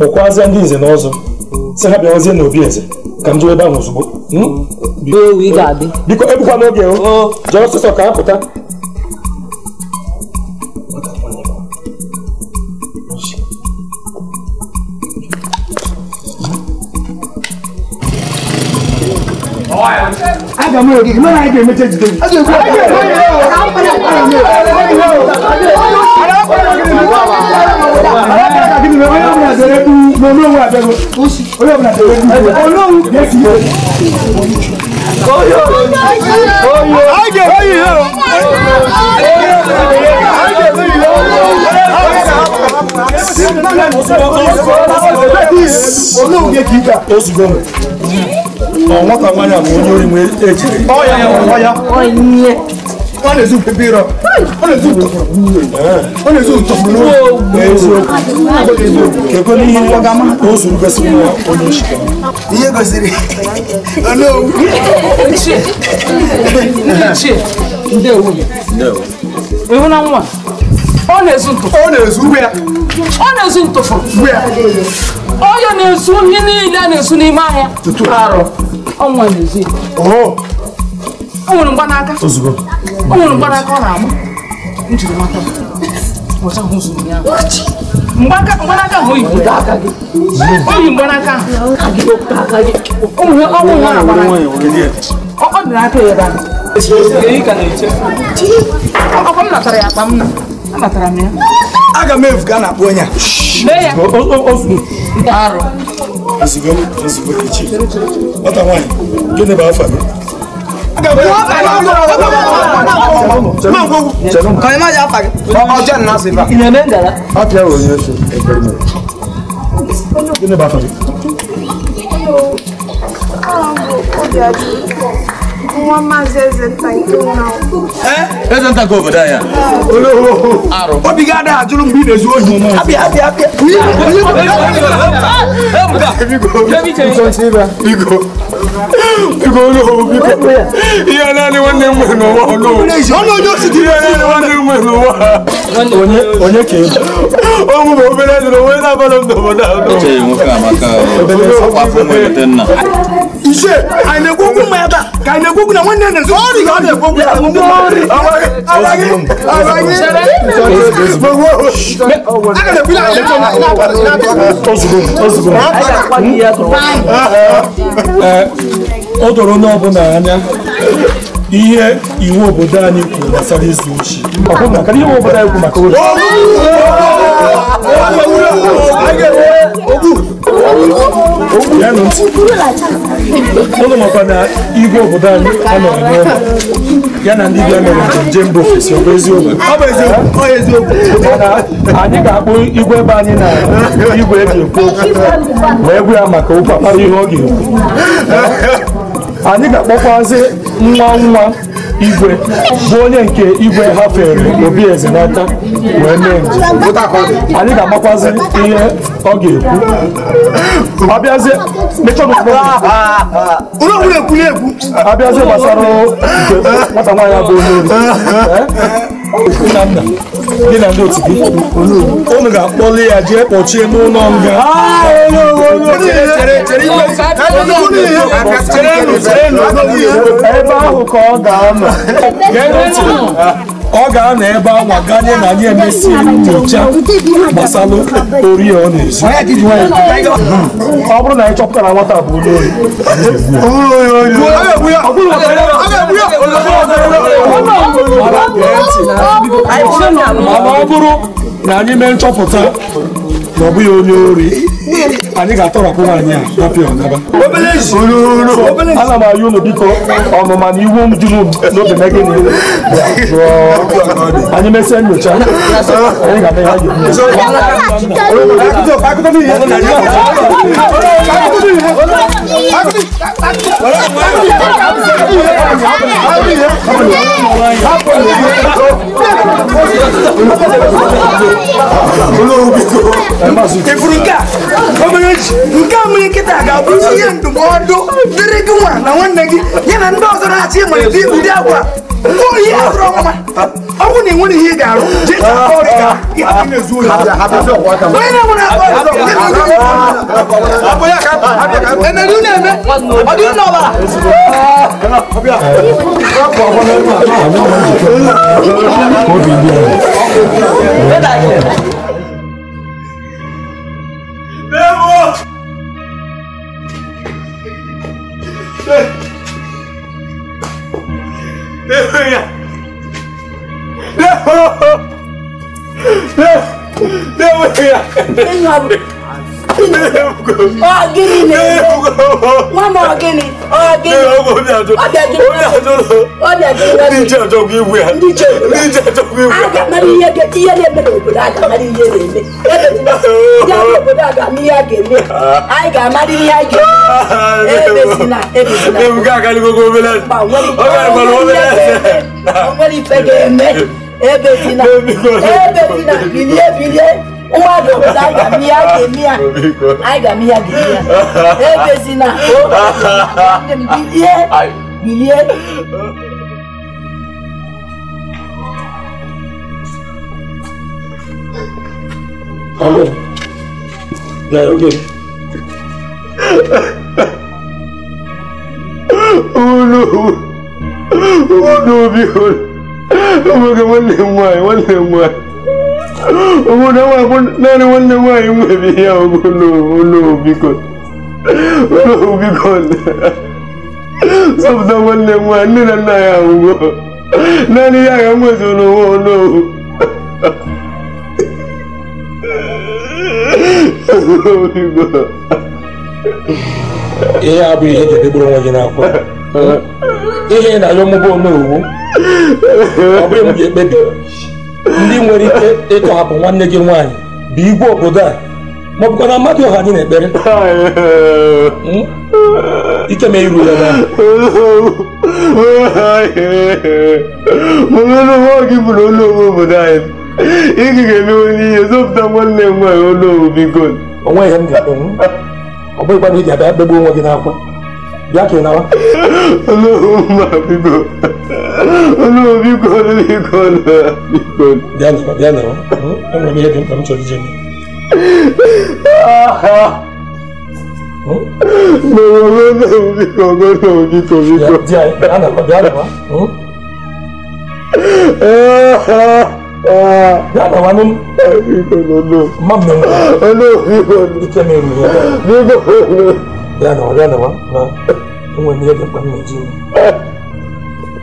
kpọkwazie ndị nze na ọzọ si ha bịawazie na eze ka m jewe ebe ahụ ozugbo biko ebukwa n'oge o jee ọsụsọ ka a aga m ogige ga-emecha àtẹ̀lé kú olówó àtẹ̀lé olówó àtẹ̀lé kú olówó yẹtì yẹ. ayé oyi o ayé ọ̀wọ́n kan máa ń yàgò ojú orí mu ẹ̀ ọ̀ya ọ̀ya ọ̀ya wọ́n lè sùn pépé rọ wọ́n lè sùn tọ̀kọ̀ wọ́n lè sùn tọ̀kọ̀ lọ́wọ́ kẹ́kọ̀ọ́ ní yín wọ́gá má ó sùn bẹ́sì mú wa ó ní oṣù kẹ́kọ̀ọ́. iye gòsìrì olóòwò. ṣe ṣe ǹdẹ́ owó mi. ewu náà ń wà ọ na-ezu ntụfụ ọ na-ezu uwe ya ọ na-ezu ntụfụ uwe ya ọ ya na-ezu ihe niile a na-ezu n'ime ahịa arụ ọnwa na-ezu ya o nwere mgbanaka Aku mau mgbanaka ọ na-agba m jiri mata ọcha ahụ zuru ya mgbanaka ahụ oyibo oyi mgbanaka aku mau nwa na-agbara ọ dị n'aka ya ebe ahụ ọkwa m natara ya akpa m na anatara m ya aga m efu ka a na-akpọ onye a arụ ozugbo ozugbo echi nwata nwaanyị gịnị bụ afa gị kọ̀yìn má yà fàgẹ́. ọjọ́ nínú àṣẹ ìfà. ìyẹn bẹ́ẹ̀ dara. a fi ẹ̀rọ yẹn ṣe ẹgbẹ́ mi. kí ni bá sọ yìí. Nwa maazị eze nta nke nwa. Ee, eze nta nke obodo anyị a. Ologho. Arụ. Obi gị adịghị ajụrụ mgbe ị na-ezu ohi. Abịa abịa abịa. Biko. Biko. ihe naanị nwanne m nwere n'ụwa onye ka ọ bụ obere dị n'onwe na-abara m n'obodo ahụ ishe a na-ekwokwu ma ebe a ka a na-ekwokwu na nwanne nne nso ọrị ọ na-ekwokwu ya ọmụmụ ọ dọrọ onye ọbụla anya ihe iwu obodo anyị kwuru gbasara izu uchi iwu obodo anyị kwuru maka ori ogbu onu makwa na igwe obodo anyị ọ n'ụlọ ya na ndị bịa mere njem bụ ofesi ọ bụ eziokwu anyị ga-akpụ igwe ebe anyị na igwe eji ekwu okwu wee gwa ya maka ụkwụ akpara ihe ọ ga-ekwu anyị ga-akpọkwazị nwa nwa igwe bụ onye nke igwe hafere obi eze n'aka wee mee njem anyị ga-amakwazi ihe ọ ga-ekwu abịazie gbasara nke nwata nwaanyị abụ onye ori [LAUGHS] gị na ndị otu gị unu ga-akpọli ya jee kpọchie n'ụlọ nga ebe ahụ ka ọ ga-anọ ọ ga-anọ ebe anwa ganye na anyị emesiri nyocha gbasara ori ọ na-ezu ọ bụrụ na anyị chọpụtara nwata bụ onye ohi mana ọ bụrụ na anyị mee nchọpụta na ọ bụghị onye ori anyị ga-atọrapụ nwaanyị a tapịa ọnaba obelensi obelensi ana m ayụ unu biko ọnụma na iwu m juru n'obi megị na iwu anyị mesịa nyocha anyị ga-eme ya olórí bíi tó. ẹ má sùn. èfuru nká ọmọ yẹn nká mu yẹn kẹta àgàbọ̀ yẹn ndụmọdụ dịrị gị nwa na nwanne gị ya na ndị ọzọ na-achị ịmalite ụdị agwa mkpụrụ ihe azụrụ ọmụma ọ bụrụ na ị nwere ihe ị ga-arụ jee chọọ 两位呀，两位呀，两位呀，哎呀！ọgìnì ni wọ́n mọ ọgìnì ọgìnì ọdẹjì ọdẹjì níjẹ tó kí wẹ níjẹ tó kí wẹ. agamari iye de ti iye de bẹ obodo agamari iye de eme ebe ti bẹ ya obodo agamari iye de eme ayi gamari iye de eme ebe si na ebe si na. ewu ká kálí gbogbo obìnrin lẹsẹ ọgbà ìgbàlú obìnrin lẹsẹ. ọgbẹ́ni fẹ́ de eme ebe si na ebe si na bilie bilie nwa dị obodo anyị ga m ihe a ga-eme ya anyị ga m ihe a ga-eme ya ebezina bilie bilie Alô? Né, o quê? Ulu! Ulu, viu? Eu vou ganhar um lemon, um Kuna wakun nani wanda wayi mabia kuno kuno bikon kuno bikon. Sabda wanda wa ni na na ya ungo. Nani ya ya mwezo no wono. Kuno bikon. Iya abu ya ke duburan wajen akwa. Ihe na yo mubo no. Abu ya mu ke bebi. ndị nwere ike ịtọhapụ nwanne gị nwaanyị bụ igwe obodo a ma ọ bụkwa na mmadụ ọha dị n'ekpere hmm? ike ma iru ya na gị bụrụ ụlọ ome obodo anyị ị ga-emewe n'ihe zọpụta nwanne m nwaanyị ụlọ obigo onwe ihe m ga-akpenwu hmm? ọ bụghịkwa na ị ga-abịa kpegbu onwe gị n'akwa bịa ka ị nawa ụlọ ma bigo Hello, Bikon, Bikon, Bikon. Diyan naman, diyan naman. Ang ramiya din kami sa diyan. Nawa na na uji ko, na na uji ko, Bikon. Diyan, diyan naman, diyan naman. Diyan naman nun. Bikon, ano. Mam na nga. Ano, Bikon. Diyan na nga. Bikon, ano. Diyan naman, diyan naman. Ang ramiya din kami sa diyan.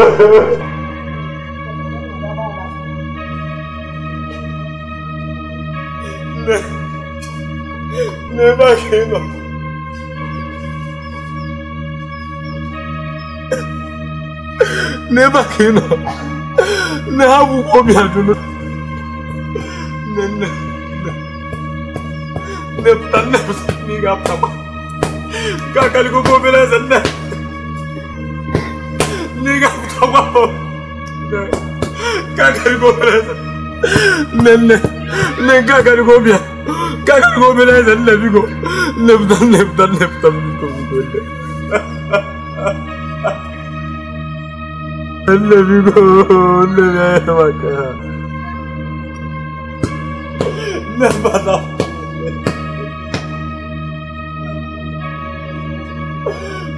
ne? Ne bakayım o? Ne bakayım o? Ne habu komiyadını? Ne ne? Ne ne ne ne yaptım? Kakaliku kopyalayasın ne? 고마워. 까가르고 그래서 냈네. 낸 까가르고 미안. 까가르고 그래서 내비고 냅다 냅다 냅다 믿고 그래. 내비고 내내 막아. 내 받아.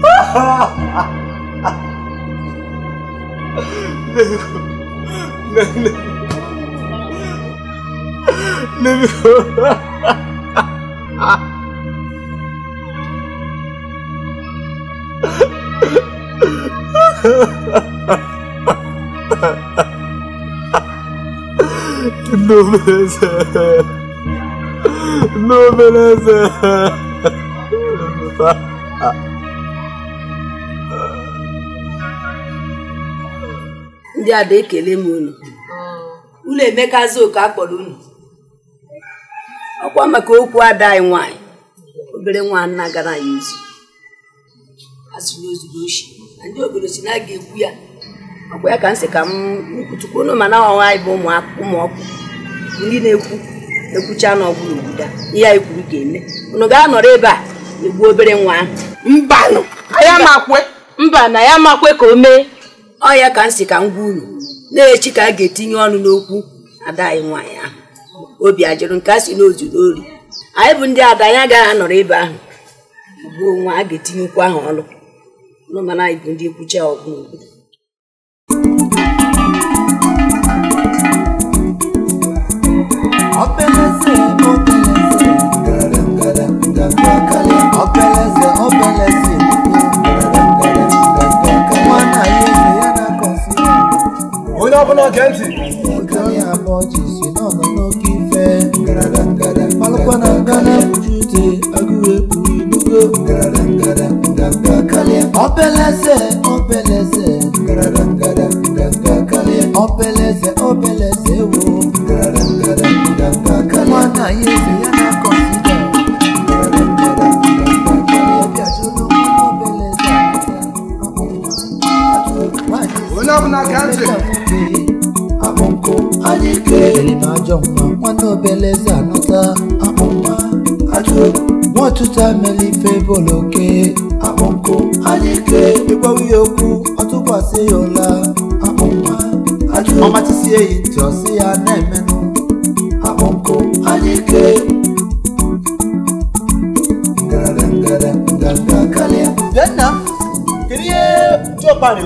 Ha ha ha! Números Números ndị ada ekele m unu ụlọ emekazi oke akpọrọ kpọrọ unu ọkwa maka okwu ada anyị nwanyị obere nwa nna gara anyị ozi azụrụ ozuru ochi na ndị obodo si na a ekwu ya ọkwa ya ka m sị ka m kwutukwu unu mana ọnwa anyị bụ ụmụọkụ ndị na-ekwu ekwucha n'ọgbụrụ obodo ihe anyị kwuru ga-eme unu ga-anọrọ ebe a egbuo obere nwa ahụ mba na ya makwe ka o mee ọ ya ka m si ka m gwa unu na-echi ka a ga-etinye ọnụ n'okwu ada anyị nwaanyị ahụ obi ajụrụ nke a si n'ozudo ori anyị bụ ndị ada anya agaghị anọrọ ebe ahụ gbuo nwa a ga-etinye ahụ ọnụ mana anyị bụ ndị nkwucha ọgụ obeleze ndị ọbụla oge ntị alụkwa na nga na-ebuju ute agụụ ekpuru ibugo opeleze opeleze opeleze opeleze ewo nwaanyị eze ya Nilitajompa mwando beleza nuta Amonga ajo Wọ́n túta mẹ́lí fẹ́ bọ̀lọ́kẹ́ àmọ́kò àyíké gbígbọ́ wíyókù ọtúbọ̀ sí ọ̀la àmọ́kò àjò ọmọ ti sí èyí tọ́ sí anẹ́mẹ́nu àmọ́kò àyíké. Bẹ́ẹ̀ náà, kìnìyẹ́ tí ó parí.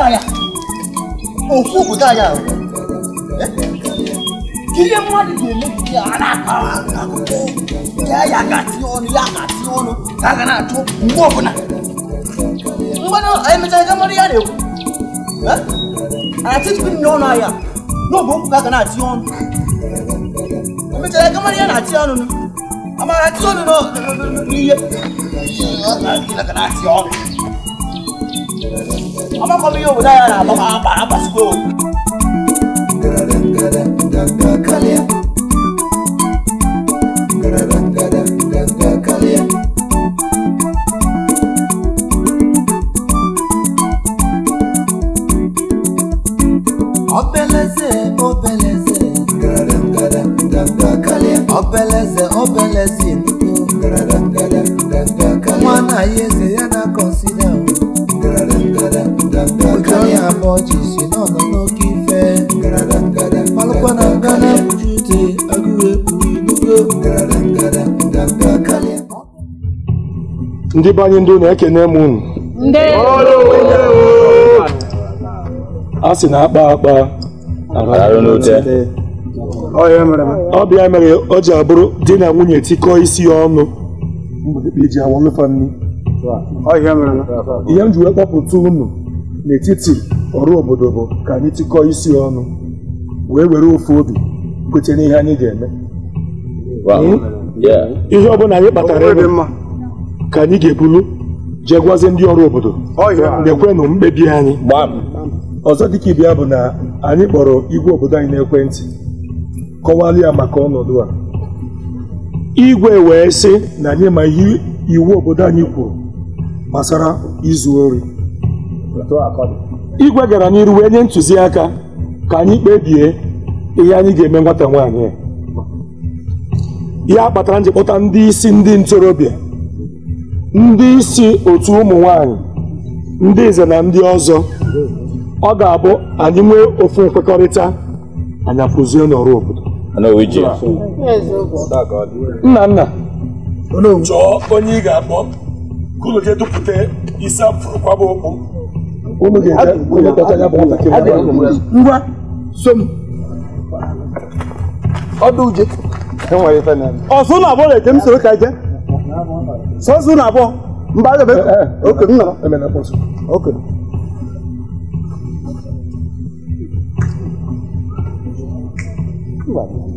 dára òkú òkú dára o kí yé má lè lè kí ara kà á kó yá yàgà tí ọ̀nù yàgà tí ọ̀nù yàgà náà tó mbọ̀ bù nà mbọ̀nà ẹ̀mẹ̀tẹ̀ ẹ̀ka mọ̀rẹ̀ yà dẹ̀ o àti tí bí nìyọ̀ náà yà n'ogbó yàgà náà tí ọ̀nù ẹ̀mẹ̀tẹ̀ ẹ̀ka mọ̀rẹ̀ yà náà ọmọ kan mi yóò wò dára àbá àbá àbá àbá àbá anyị abụọ jisi n'ọnọ ife ndị be anyị na-ekene m unu a sị na akpa akpa ọ bịa mere o ji abụrụ di na nwunye tikọọ isi ya ọnụ ihe m ji wee kpọpụta unu n'etiti ọrụ obodo bụ ka anyị tikọọ isi ọnụ wee were ofu obi kwete n'ihe anyị ga-eme hmm? ihe ọbụla anyị kpatara ebe ka anyị ga-ebulu jee gwazi ndị ọrụ obodo oh, ekwenụ mkpebi anyị ọzọ dịka ibe bụ na anyị kpọrọ igwe obodo anyị n'ekwentị kọwalụ ya maka ọnọdụ a igwe wee sị na anyị ma ihe iwu obodo anyị kwuru gbasara izu ori igwe gara n'iru wee nye ntụziaka ka anyị kpebie ihe anyị ga-eme nwata nwaanyị ya kpatara nji ndị isi ndị ntorobịa ndị isi otu ụmụ nwanyị ndị nze na ndị ọzọ ọ ga-abụ anyị nwee ofu nkwekọrịta anya akụzie n'ọrụ obodo nna nna chọọ onye ị ga-akpọ dupụta kwaba okpu ngwa som ọdụ uje ọsụ na abụọ na-eje m soro ka je sọsụ na abụọ mba agabe oke m nọrọ Thank you.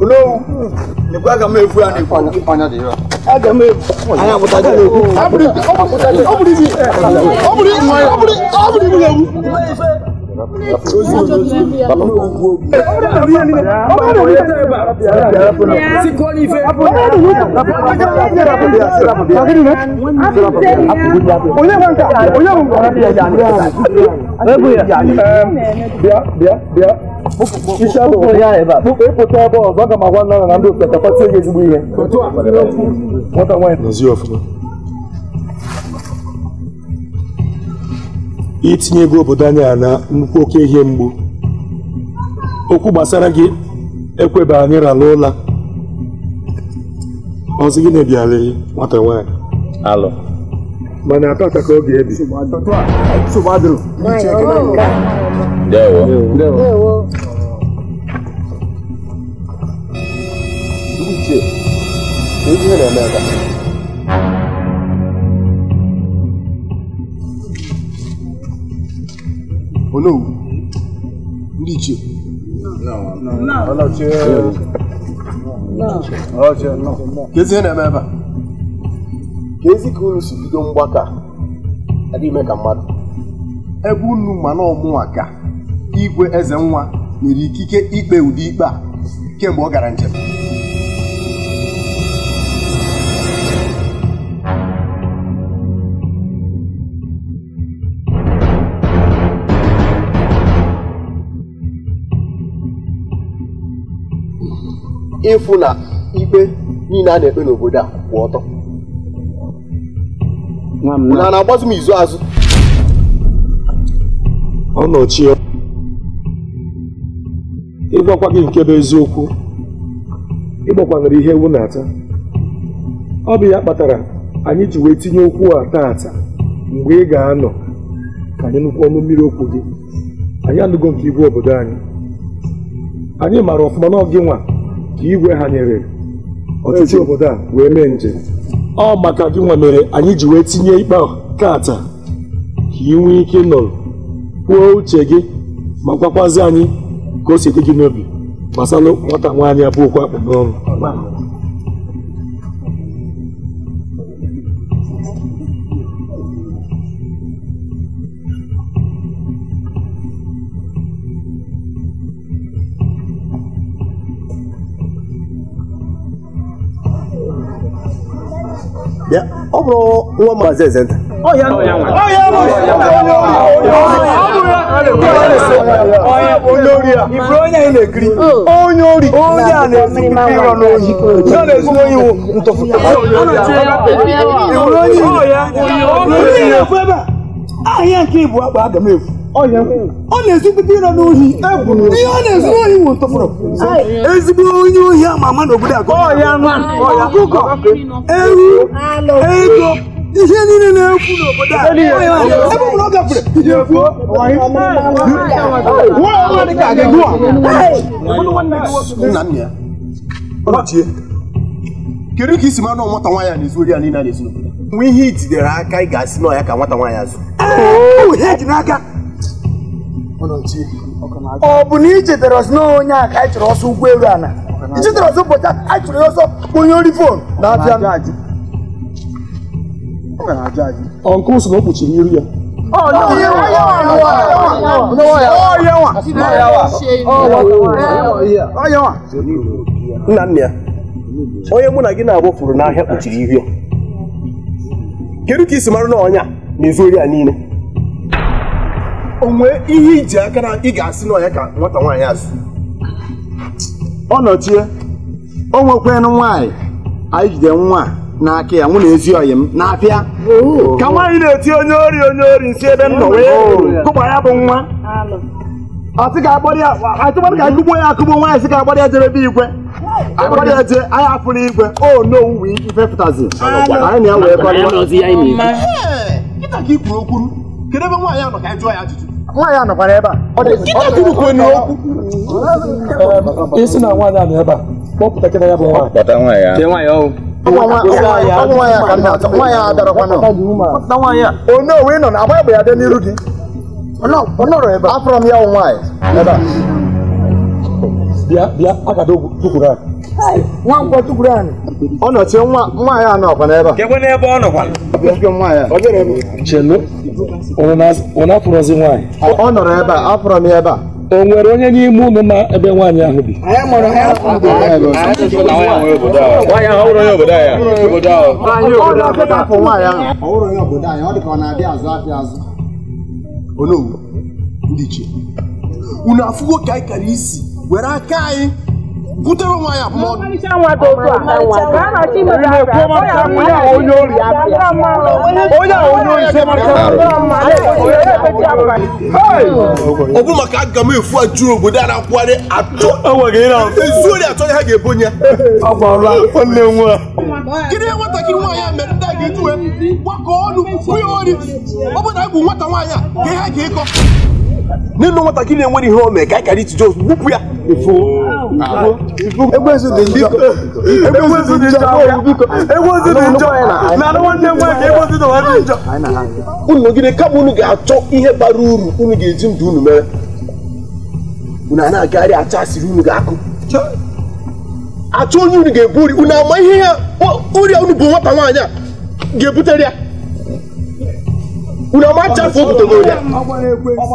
olóhùn nípa àgàmọ èfu àná èfu àná àgàmọ èfu àná isi ya ebe a ịpụta ebe ọzọ aga m agwa nna na ndị otu gị ezigbo ihe itinye ego obodo na nnukwu oke ihe mgbu okwu gbasara gị ekweba anyị rala ụla ọzọ gị na-ebiala nwata mana atọ ka ebi ndewo ndewo ndiche ndiche naendaka ono ndiche ọlọchie ọlọchie nọ ka ezi ihe na-eme ebe a ka ezi ka unu si bido mgbaka adịghị ime ka mmadụ ebe unu ma na ọmụnwa gaa igwe eze nwa nyere ikike ikpe ụdị ikpe a kemgbe ọ gara njem ịfụ na ikpe niile a na-ekpe n'obodo a kwụ ọtọ na na-agbazu m izu azụ ọ ịgwakwa gị nke bụ eziokwu ịgbakwanyere ihe ewu na-ata ọ bụ ya kpatara anyị ji wee tinye okwu a taata mgbe ị ga-anọ ka anyị nụkwu ọnụ mmiri okwu gị anyị anụgo nke igwe obodo anyị anyị maara ọfụma n'ọgị nwa ka igwe ha nyere ọtụtụ obodo a wee mee njem ọ maka gị nwa mere anyị ji wee tinye ikpe kaata ka ị nwee ike nọrọ kwuo uche gị ma gwakwazi anyị ka o si dị gị n'obi gbasalụ nwata nwaanyị abụọ okwu akpụ n'ọrụ ọ bụrụ nwa maazi eze nta ọ ya olórí à ìbúrọ́yà ilẹ̀ kiri oyin orí oyin àlẹ́ ìrọ̀ lóyìn yóò lè sún oyin wo ntọ́fù. ìbúrọ́yìn olórí ilẹ̀ fẹ́ bá ayé kí ìbú àgbà àgàmọ́ èfù ọ na-esi pipi ịrọ n'ohi ihe ọ na-esi n'ohi wụ ntọfụrụ ezigbo onye ohi ama ama n'obodo akọ ọkụkọ ewu ego ihe niile na-ekwu n'obodo a ebe ọ bụla ọ gafere ihe kwuo nwa ka gị gụwa nna nna ya ọchie kedu ka isi manụ nwata nwaanyị a na-ezu ori ya niile a na-ezu n'obodo nwe ihe itidere aka ị ga-asị n'ọya ka nwata nwaanyị azụ ọ bụ na i chetara ọsọ onye a ka anyị chọrọ ọsọ ụgbọ elu ala i chetara ọsọ ụbọchị anyị chọrọ ya ọsọ onye ori fon na-abịa ọnkụ sị na o kpuchiri iru ya nna nna ya onye mụ na gị na-abụ furu n'ahịa kpuchiri ihu ya kedu ka isi mara na ọnya na-ezu ori ya niile onwe ihe iji aka na ị ga-asị n'ọnya ka nwata nwaanyị asị ọ nọchie o nwekwanụ nwaanyị anyị jide nwa a n'aka ya mụ na ezi ọyị m na-apịa oh. ka nwaanyị na-eti onye ori onye ori nsi ebe m nọ wee oh. kụgba ya bụ nwa atụkpara ka akụgbo ya akụgbo nwaanyị sị ka agbara ya jerebe igwe agbara ya je anyị afụla igwe o n'owuwe ife pụtazi anyị na ya wee kọrọ nwaanyị anọkwara ebe a isi na nwaanyị anọ ebe a kpọpụta kịta ya bụ nwaanyị nwaanyị adarakwana onye ị nọ na agba egbe ya dị n'iru gị afọrọ m ya wụ nwaanyị ebe a bịa bịa agada ogwu tukwuru anyị nwa nkwọ tukwuru anyị ọ nọchie nwa nwaanyị a nọkwa n'ebe a kekwe n'ebe ọ nọkwala chelu ụnụ afụrọzi nwaanyị ọ nọrọ ebe a afọrọ m ya ebe a o nwere onye n'ime ụnụ ma ebe nwaanyị ahụ bi unu afụgo ka anyị kara isi were aka anyị kutere nwaanyị abụọ ọ bụ maka aga m efu ajụrụ obodo a na-akwụgharị atọ ezuori atọ ha ga-ebo ya gịnị nwatakịrị nwaanyị a mere ndị a ga-ejuwe gbakọ ọnụ kwụnye ori ọ bụ na bụ nwata nwaanyị a ka ha ga-ịkọ nwata gị na enwere ihe ome ka anyị kara itije ozugbo gbupụ ya unu nọgide kama unu ga-achọ ihe bara uru unu ga-eji ndụ unu mere unu a na-agagharị acha asịrị unu ga-akụ achọ onye unu ga-ebu uri unu ama ihe ya ọrịa unu bụ nwata nwaanyị a ga-ebutere ya unu ọma chafụ obodo ya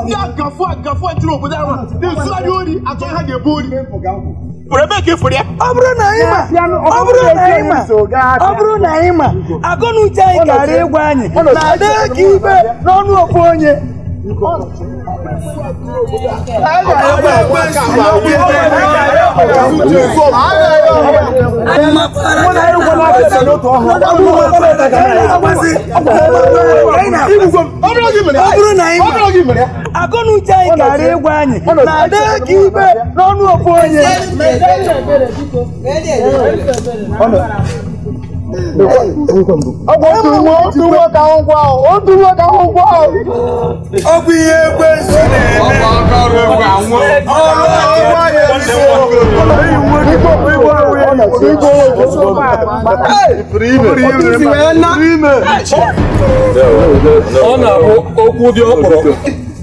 ndị agafụ agafụ obodo ahụ na-ezugharị ori atọ ha ga-ebu ori ya ọ bụrụ na anyị ọ bụrụ na anyị ma ọ bụrụ na anyị ma agụ anyị gara ịgwa anyị na adịghị ka ibe n'ọnụ onye akọnụ uche anyị gara ịgwa anyị na-adị ka ibe n'ọnụ ofu onye otu nwoke ahụhụ ọ bụ ihe ekwensu na-eme na-abụ okwu dị ọkpụrụ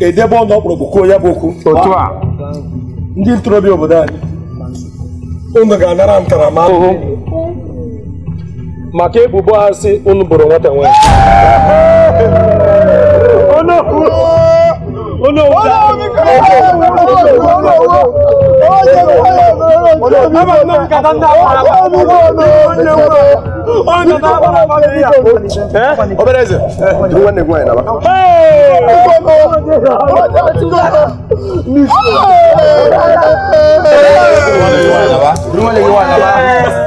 edebe ọnụ ọkpụrụ kwuo ya bụ okwu otu a ndị ntorobịa obodo anyị unu ga-anara ntaramahụhụ maka ebubo asị unu bụrụ nwata nwanyị obere eze nwanne gị nwaanyị naba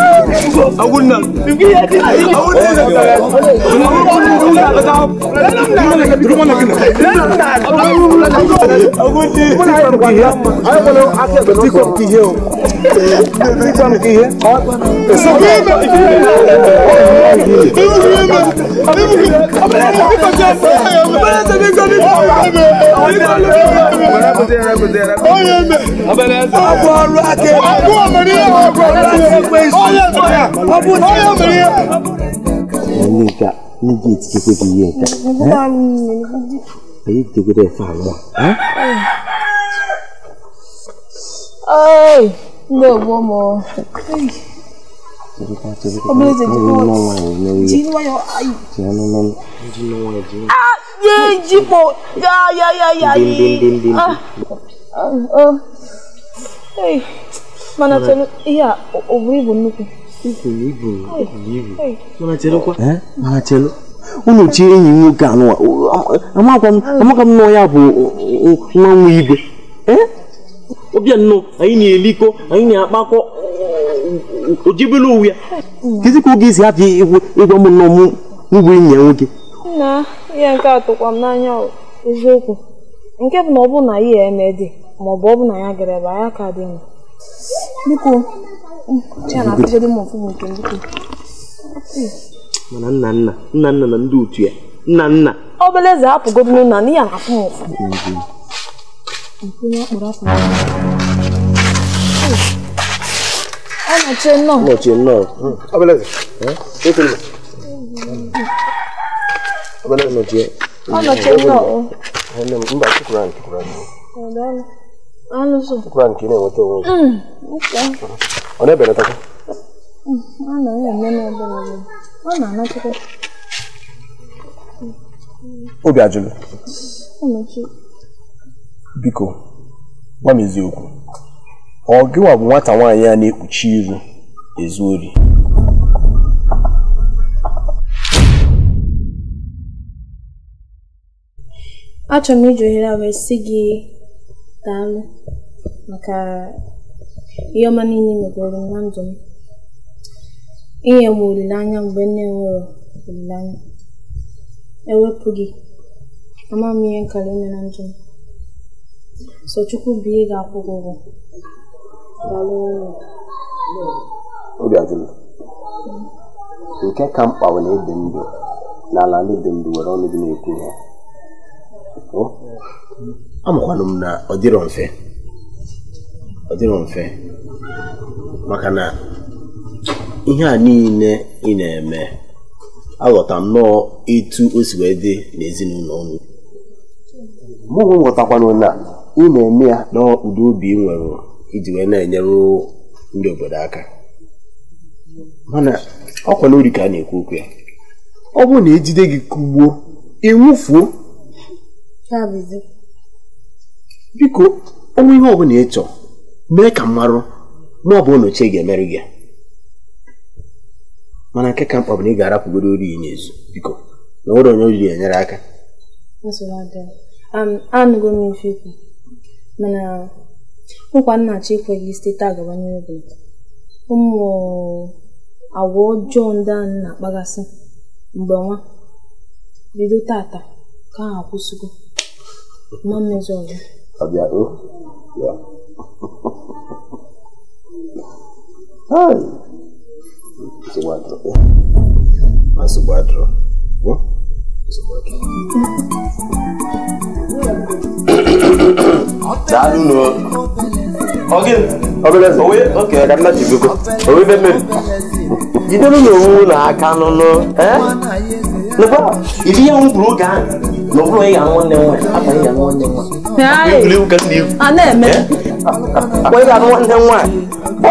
أقول نعم أقول نعم أقول نعم أقول نعم Nika, Nika, it's good to hear that. good at farmer? Ay, no, one more. Ọmọ ẹ̀jẹ̀ ti bọ̀ jí ní wáyọ̀ ayé. Ah, yé jípo yáyáyáyá yìí. Ah, ah, ah. mana chere ihe a ọ bụrụ ibu nnukwu mana chelụ eh? unu chi enyi nwoke anụwa amaka m nọ ya bụ nwa nwa igwe ọbịa eh? anyị na-elikọ anyị na-akpakọ ojibela uwe ya kezi ka oge esi hapụ ịgwa m nọ m enyi ya nwoke nna ihe nke a tụkwa m n'anya eziokwu nke bụ na ọ bụrụ na ya eme dị ma ọ bụ ọ bụ na ya gara ebe anya ka dị mma biko aafụgo m ọfụ nke biko mana nna nna nna nna na ndị otu ya nna nna obere eze hapụgo m nna n'ihi na afụ m ụfụ Ọnọchie nnọọ. Ọnọchie nnọọ. Ọbeleze. Ekwulu. Ọbeleze nọchie. Ọnọchie nnọọ. Mba, chukwuru anyị, chukwuru anyị. Ọnụ so. Chukwuru anyị ka ị na-enweta onwe gị. ọ na-ebelatakwa na naghị eme m ebere ọ na-anatakwa obi ajụlụ biko gwa m eziokwu ọ gịwa bụ nwata nwaanyị a na-ekpuchi iru ezu ori achọrọ m iji ohere a wee sị gị daalụ maka ihe ọma niile megoro m na ndụ m inye m olileanya mgbe nne m nwere olileanya ewepụ gị ama m ihe nkara ime na ndụ m sochukwu bụ ihe ga-akwụ gị ụgwọ obi nke ka mkpa bụ na ịdị ndụ n'ala ndị dị ndụ were ọnụ gị na-ekwu ha amakwanụ m na ọ dịrọ mfe ọ dịrọ mfe maka na ihe a niile ị na-eme aghọta nnọọ etu o si wee dị n'ezinụlọ unu mụnwe nghọtakwana na ị na-eme ya na obi ị nwere iji wee na-enyere ndị obodo aka mana ọkwa n'ori ka a na-ekwu okwu ya ọ bụrụ na ejide gị kugbuo ịnwụfuo biko onwe ihe ọbụla ị mee ka mmarụ ma ọ bụ ga-emeri gị mana nke ka mkpa bụ na ị ga-arapụgoro ori ya n'ezu biko na nwere onye oriri enyere aka anụgo m ife ikwu mana nkwa nnachi ekweghị site taa gaba n'obi ụmụ agwa ọjọọ ndị anyị na-akpaghasị mgbe nwa bido tata ka ha akwụsịgo ma mmezi ọzọ ṣe wá dúró má ṣe wá dúró wọ́n ṣe wá dúró. Daalu nù ọgẹ ọbẹlẹ owe oke ọdọ mma ti gbogbo owe bẹ mmiri jidere na owu na aka n'ọnụ ẹ n'ụgbọ ibi ya nwụrụ oge ahụ na ọ bụrụ ya nwanne nwa abalị ya nwanne nwa. Ee, a na-eme. Wee ga-anụ nwanne nwaanyị. ị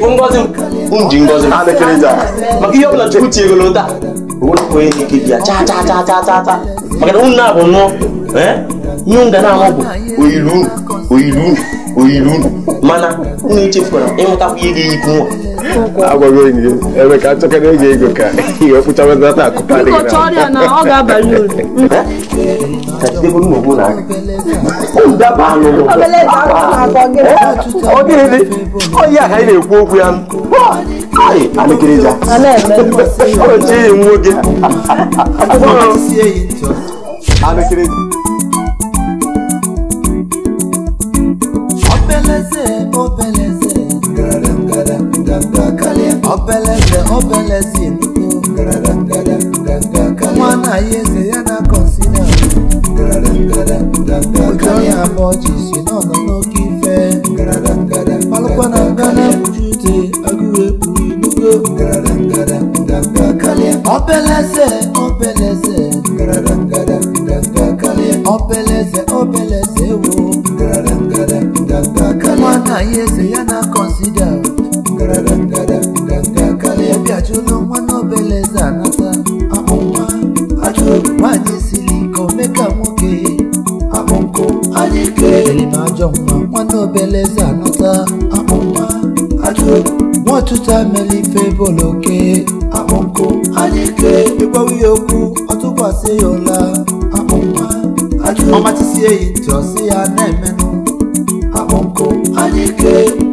bụ ngozi m ji maka ihe ọbụla chukwu chi egolo taa onye chaa chaa na unu na-abụ nnụọ ihe m ga na-ahụ bụ oyilu oyiru mana unu mana unu ihe ga-eyipu nwa agwaghị onye ebe ka na eji ego ka ihe ọkpụchawa n'ata akụkọ adịghị ọ ga-abalị onye aha na-ekwu okwu ya oche enyi m nwoke obeleze obe obelezin mwana yeze yana konsina ojo Baby achụla nwa n'obeleze anata akpụnwa achụrụ nwaanyị siri ike omeka nwoke akpụnkụ anyị kelere na ajọ nwa nwa boloke akpụnkụ anyị ke ịgwawa ya okwu ọtụkwasị ya ụla akpụnwa achụrụ ọmachisie yi ntị